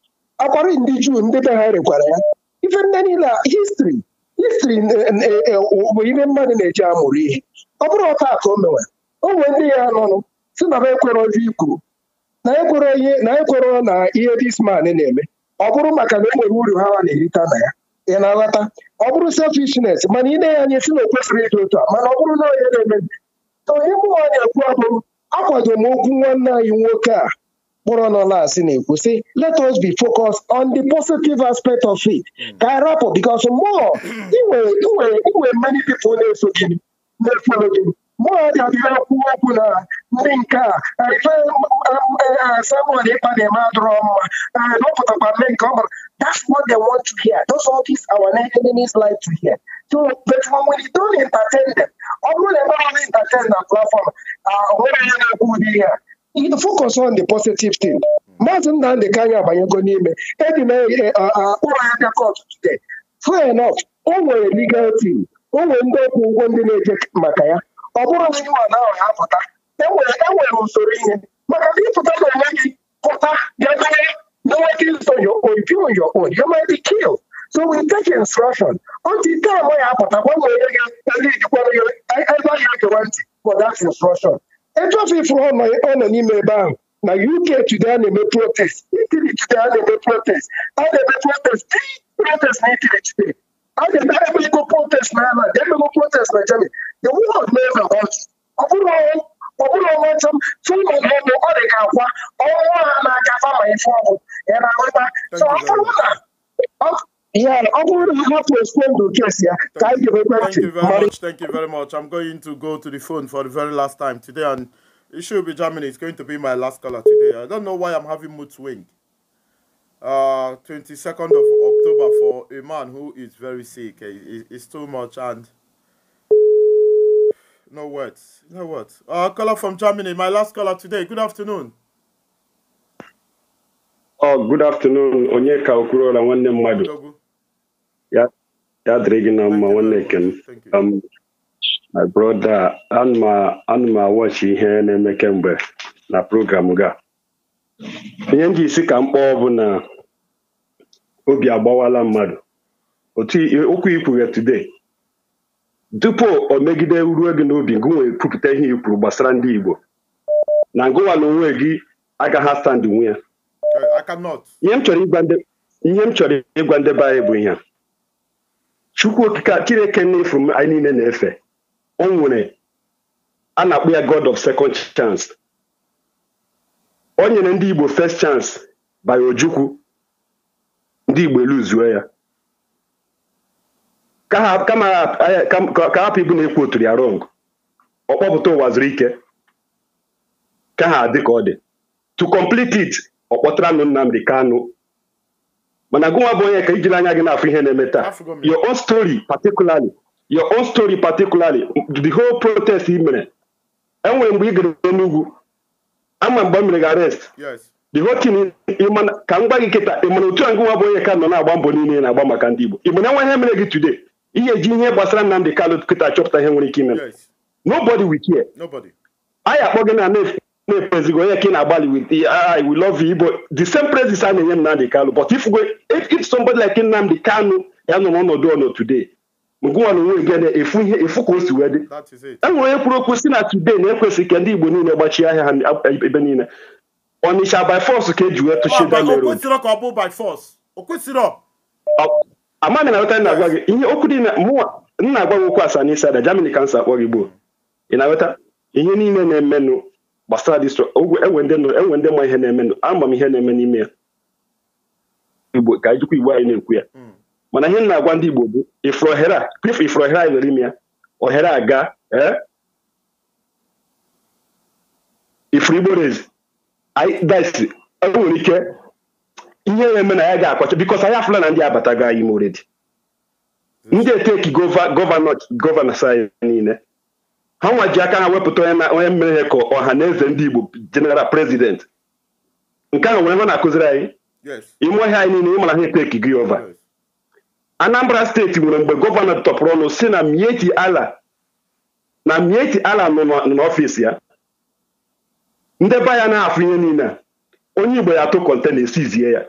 akwarụ ndị juu ndị be ha rekwara ya ife ndị niile histri histri bụ ihe mmadụ na-eji amụrụ ihe ọ bụrụ ọta ka o mewe o ndị ya nọnụ si na ba ekwere ozi ikwuru na ekwere ihe na ekwere na ihe disman na-eme ọ bụrụ maka na enwere uru ha na-erita na ya ị na-aghọta ọ bụrụ selfishness mana ị na-enye anya si na o kwesịrị ịdị otu a mana ọ bụrụ na onye na-eme onye mụnwa anyị ekwu abụ akwado m okwu nwanne anyị nwoke a kpọrọ nọ asị na-ekwu sị let us be focused on the positive aspect of it mm. ka anyị rapụ bikos mmụọ inwe many people na-eso gị na-efolo gị mmụọ ga-adịrị akwụ okwu na ndị nke a Samuel ịkpa um, um, uh, na-eme adịrọ mma dọpụtakwa eh, ndị nke ọ bara that's what they want to hear those all these our enemies like to hear so but when we don't entertain them ọ bụrụ na ebe entertain na platform ah, onwe onye na-ekwu ụdị ihe focus on the positive thing maazị nnamdị kanya abanyego n'ime edi na e, e, ụlọ aka kọt today fair enough o nwere legal team o nwere ndị ọkwụ ụgwọ ndị na-eje maka ya ọ bụrụ na ịwa na ha pụta enwere e usoro ihe maka na ịpụta na onwe gị pụta bịa dere noweta iso your own doing your own you might be killed so we take instruction ọtụ ite ama ya apụta gbanwere gị ndị jikwara ya ebe ahịa gewa ntị for that instruction ebe ofefu ọ nọ n'ime ebe ahụ na uk today a na-eme protest itili today a na-eme protest a na-eme protest big protest na itili today a ga-eme emego protest na ala ga-emego protest na germany the world never wants ọ bụrụ ọbụrụ ọnwa ntụ fụma ọbụ ọ dị ka akwa ọnwa ha na-aka fama ife ọbụ ya na-ahụta ọ bụrụ na Yeah, I to have to respond to this. Yeah. Thank, you, thank you very much. Thank you very much. I'm going to go to the phone for the very last time today, and it should be Germany. It's going to be my last caller today. I don't know why I'm having mood swing. Uh, 22nd of October for a man who is very sick. Eh, it's too much, and no words. No words. Uh, caller from Germany. My last caller today. Good afternoon. Oh, good afternoon. Onyeka Okurola, nwanne mmadụ. ya yeah, gị na one neck. my brother, a my watch ihe na-eme kemgbe na program ga. Ihe ndị isi ka mkpọ bụ na obi agbawala mmadụ. Otu okwu ikwughe today. Tupu o megide ruo gị n'obi gị kwupụta ihe ikwuru gbasara ndị Igbo na ngụwa na onwe gị agaghị asandị nwe ya ihe m chọrọ ịgwa ndị anyị bụ ihe chukwu okike chineke n'efu anyị niile na-efe o nwere a na-akpọ ya god of second chance o nyere ndị igbo first chance by ojukwu ndị igbo eluzuo ya ka hapụ ibu na-ekwu otu ya rong ọ kpọpụta ụwa zuru ike ka ha dị ka ọ dị to complete it ọ kpọtara nụ Nnamdi Kanu mana gụwa bụ onye ka ijiri anya gị na-afụ ihe na-eme taa your own story particularly your own story particularly the whole protest ị mere enwere mgbe ị gara n'ugwu ama mgbe m mere gị arrest the whole thing ka m gwa gị kịta ị mana otu a gụwa bụ onye ka nọ na-agba mbọ niile na-agba maka ndị Igbo Igbo na enwe ihe mere gị today ihe eji ihe gbasara nnamdị Kanu kịta chọpụta ihe nwere ike ime nobody will care anyị akpọ gị na nef na-ekpezigo onye ka ị na-agbalị with I will love you Igbo the same praises a na-enye Nnamdi Kanu but if if somebody like Nnamdi Kanu ya nọ n'ọnọdụ ọnọ today ngụwa na onwe gị na efu ihe efu ka o si wee dị e nwere onye kwuru okwu si na today na ekwesị ka ndị Igbo niile gbachie ahịa ha ebe niile Onitsha by force ka eji wee tụchie Dameron amaghị na nweta na-agwa gị ihe okwu dị mụnwa nna agwa gị okwu asaa n'isi ada Germany kansa akpọ gị gboo ị na aweta ihe niile na-emenụ gbasara distro enwe ndị ma ihe na-eme ama m ihe na-eme n'ime ya igbo ka anyị jikwa igbo anyị na-ekwu ya hmm. mana ihe na-agwa ndị igbo bụ ifuru ohere a anyị nwere ime ya ohere aga eh? ifuru igbo rezi disi enwere ike ihe na-eme na ya ga-akwacha bikos anyị afụla na ndị abatago anyị moredi hmm. ndị eteki gọvanọ anyị niile ha nwa ji aka ha wepụta onye mere ka ọha na eze ndị Igbo jeneral prezident nke ahụ nwere ha na-akụziri anyị ime ọhịa anyị niile ịmara ha eteki gị ova Anambra steeti nwere mgbe gọvanọ tọpụrụ ọnụ si na Mieti Ala na Mieti Ala nọ n'ọfịs ya ndebe ya na-afụ ihe niile onye Igbo ya atụ kọntena esizie ya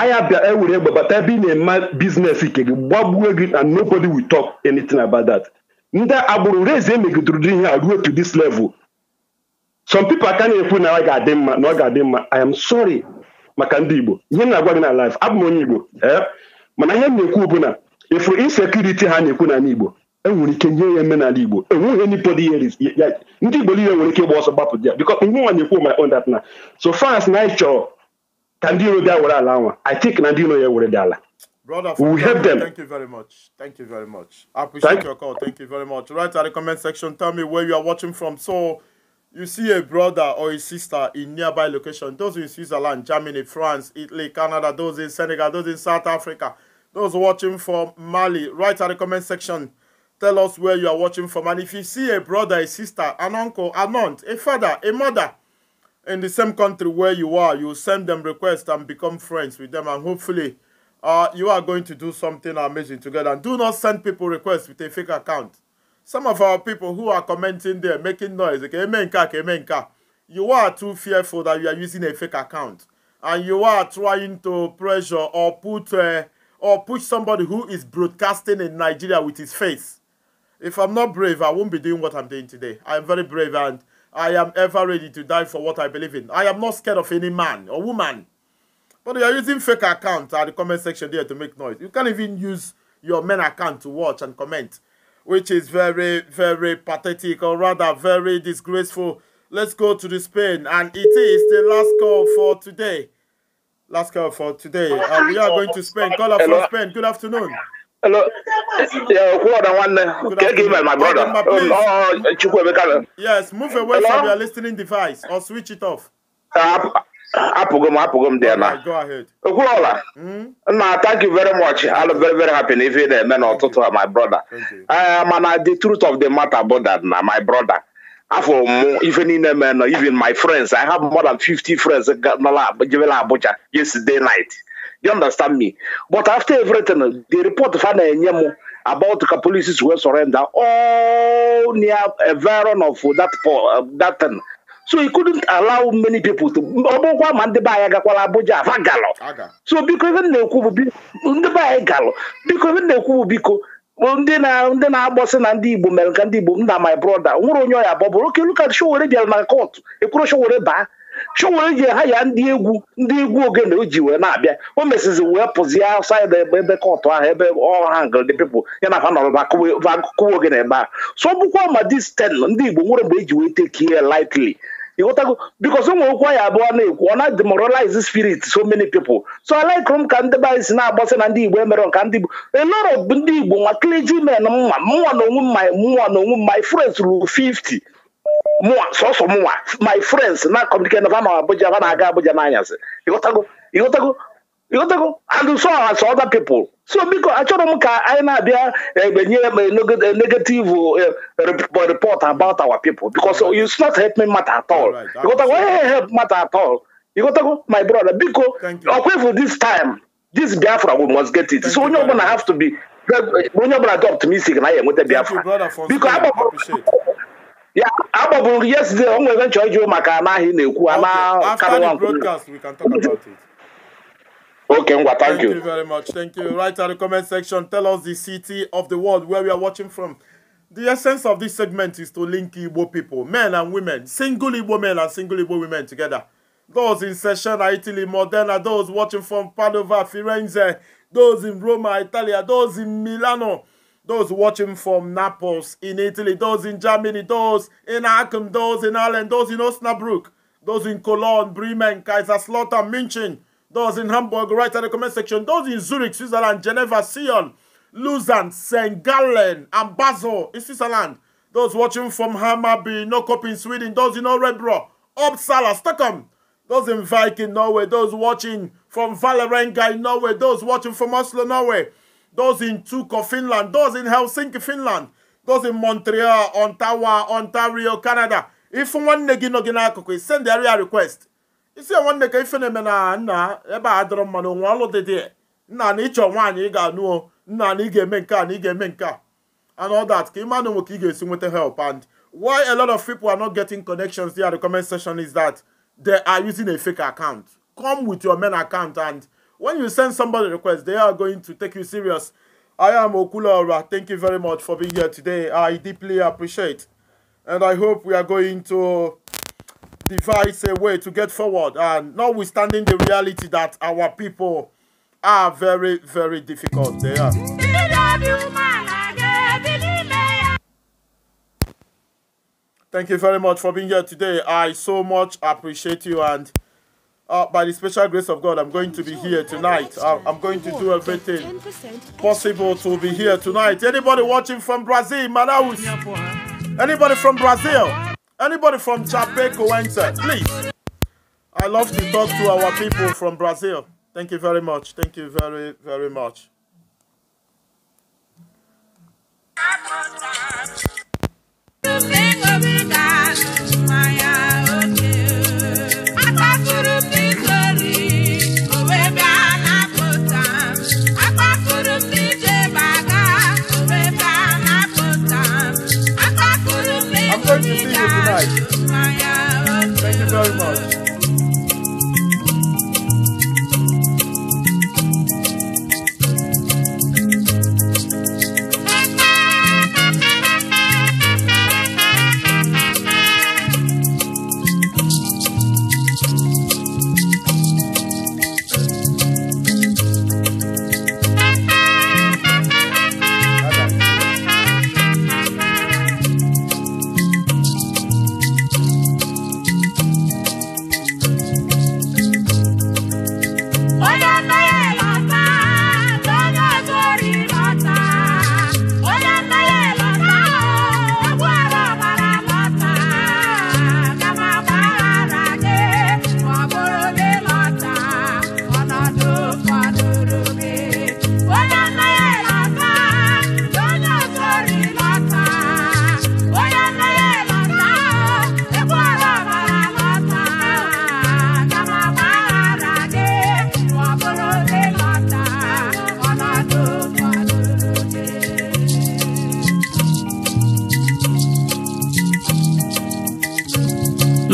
anya bịa ewere egbe bata ebe ị na-eme biznes ike gị gbagbuo gị and nobody will talk anything about that ndị agbụrụ reze megidere ihe a ruo to this level some people aka na-ekwu na ọ ga-adị mma na ọ ga-adị mma i am sorry maka ndị igbo ihe m na-agwa gị na life abụ m onye igbo eh? mana ihe m na-ekwu bụ na ịfụrụ insekuriti ha na-ekwu n'ala igbo enwere ike nye ya eme n'ala igbo enweghị nipod ihe ndị igbo niile nwere ike ịgba ọsọ gbapụ ya bikọ ihe nwa na-ekwu my own that na so fans na anyị chọrọ ka ndị iro bịa were ala nwa i think na ndị iro ya were dị ala Brother, we will help them. Thank you very much. Thank you very much. I appreciate thank your call. Thank you very much. Write at the comment section, tell me where you are watching from. So, you see a brother or a sister in nearby location. Those in Switzerland, Germany, France, Italy, Canada. Those in Senegal. Those in South Africa. Those watching from Mali. Write at the comment section, tell us where you are watching from. And if you see a brother, a sister, an uncle, an aunt, a father, a mother in the same country where you are, you send them requests and become friends with them, and hopefully uh, you are going to do something amazing together. And do not send people requests with a fake account. Some of our people who are commenting there, making noise, okay, emenka, emenka, you are too fearful that you are using a fake account. And you are trying to pressure or put uh, or push somebody who is broadcasting in Nigeria with his face. If I'm not brave, I won't be doing what I'm doing today. I am very brave and I am ever ready to die for what I believe in. I am not scared of any man or woman. But you are using fake accounts at the comment section there to make noise. You can't even use your main account to watch and comment, which is very, very pathetic or rather very disgraceful. Let's go to the Spain and it is the last call for today. Last call for today. Uh, we are going to Spain. Call up Hello. from Spain. Good afternoon. Hello. Yeah, who are the one? Uh, good give my brother. Oh, yes, move away Hello? from your listening device or switch it off. Uh, apụgo m apụgo m dị na okwuola hmm? na thank you very much I'm very very happy na ife na-eme n'ụtụtụ my brother eh, mana the truth of the matter bụ that na my brother afọ mụ ife niile mee nọ even my friends I have more than 50 friends jebela Abuja yesterday night you understand me but after everything the report fa na-enye m about ka polices wee surrender all near a of that, that thing so he couldn't allow many people to ọ ma ndị be anyị gakwara Abuja afa galọ so biko ebe na-ekwu bụ ndị be anyị galọ biko ebe na-ekwu bụ biko ndị na ndị na-agbọsị na ndị Igbo mere ka ndị Igbo m na my brother nwere onye ọya bọbụrụ oke luka Showore bịara na kọtụ ekwuru Showore baa Showore ji ha ya ndị egwu ndị egwu ogene o ji wee na-abịa o mesizi wee pụzie outside ebe kọtụ ahụ ebe ọha ngld pepl ya na fa nọrọba akụwa ogene ebe a so ọ bụkwa ma dis ten ndị Igbo nwere mgbe e ji wee tekie lightly ịghọtago bikos ụmụ okwu anyị abụọ na-ekwu ọ na demoralize spirit so many people so alaikụrụ m ka ndị be si na-agbasị na ndị igbo emere ka ndị igbo eloro bụ ndị igbo nwa clergymen mma mụnwa na onwe mma mụnwa na onwe my friends ruru 50 mụnwa sọsọ mụnwa my friends na communicate na ama Abuja ha na-aga abụja n'anyasị ịghọtago ịghọtago Ghọtago and so as other people so biko achọrọ m ka anyị na-abịa enye negative eh, report about our people because it's not help me matter at all ịghọtago onye help matter at all ịghọtago my brother biko ọkwefu this time this Biafra we must get it so onye ọbụla have to be onye ọbụla dị optimistic na ya enweta Biafra biko ya agbabụrụ yesterday o nwere nchọ ịjụ maka anaghị na-ekwu ana karịwa Okay, Ngwa, thank, thank you. you. very much. Thank you. Write in the comment section, tell us the city of the world where we are watching from. The essence of this segment is to link Igbo people, men and women, single Igbo men and single Igbo women together. Those in Session, Italy, Modena, those watching from Padova, Firenze, those in Roma, Italia, those in Milano, those watching from Naples in Italy, those in Germany, those in Aachen, those in Ireland, those in Osnabrück, those in Cologne, Bremen, Kaiserslautern, München, those in Hamburg, write in the comment section. Those in Zurich, Switzerland, Geneva, Sion, Lausanne, St. Gallen, and Basel in Switzerland. Those watching from Hammarby, Nokop in Sweden. Those in Orebro, Uppsala, Stockholm. Those in Viking, Norway. Those watching from Valerenga in Norway. Those watching from Oslo, Norway. Those in Tukko, Finland. Those in Helsinki, Finland. Those in Montreal, Ontario, Ontario, Canada. If one want to gina send the area request. isi enwe nne ka ife me eme na nna ebe a dịrọ mma na onwe ọlụ dị dị nna na ịchọ nwaanyị ị ga-anụ nna na ị ga-eme nke a na ị ga-eme nke a and all that ka ịma na onwe ka ị ga-esi nweta help and why a lot of people are not getting connections there the comment section is that they are using a fake account come with your main account and when you send somebody request they are going to take you serious I am Okulaura. Thank you very much for being here today. I deeply appreciate. And I hope we are going to device a way to get forward. And notwithstanding the reality that our people are very, very difficult, they are. Thank you very much for being here today. I so much appreciate you and uh, by the special grace of God, I'm going to be here tonight. Uh, I'm going to do everything possible to be here tonight. Anybody watching from Brazil, Manaus? Anybody from Brazil? Anybody from Chapeco enter, please. I love to talk to our people from Brazil. Thank you very much. Thank you very, very much. Thank you very much.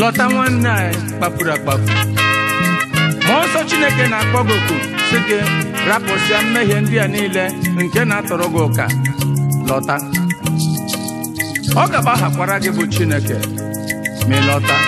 lọta nwanne anyị kpapụrụ akpapụ ma nsọ chineke na-akpọ gị oku si gị rapụsịa mmehie ndị a niile nke na-atọrọ gị ụka lọta ọ ga-agbaghakwara gị bụ chineke ma ị lọta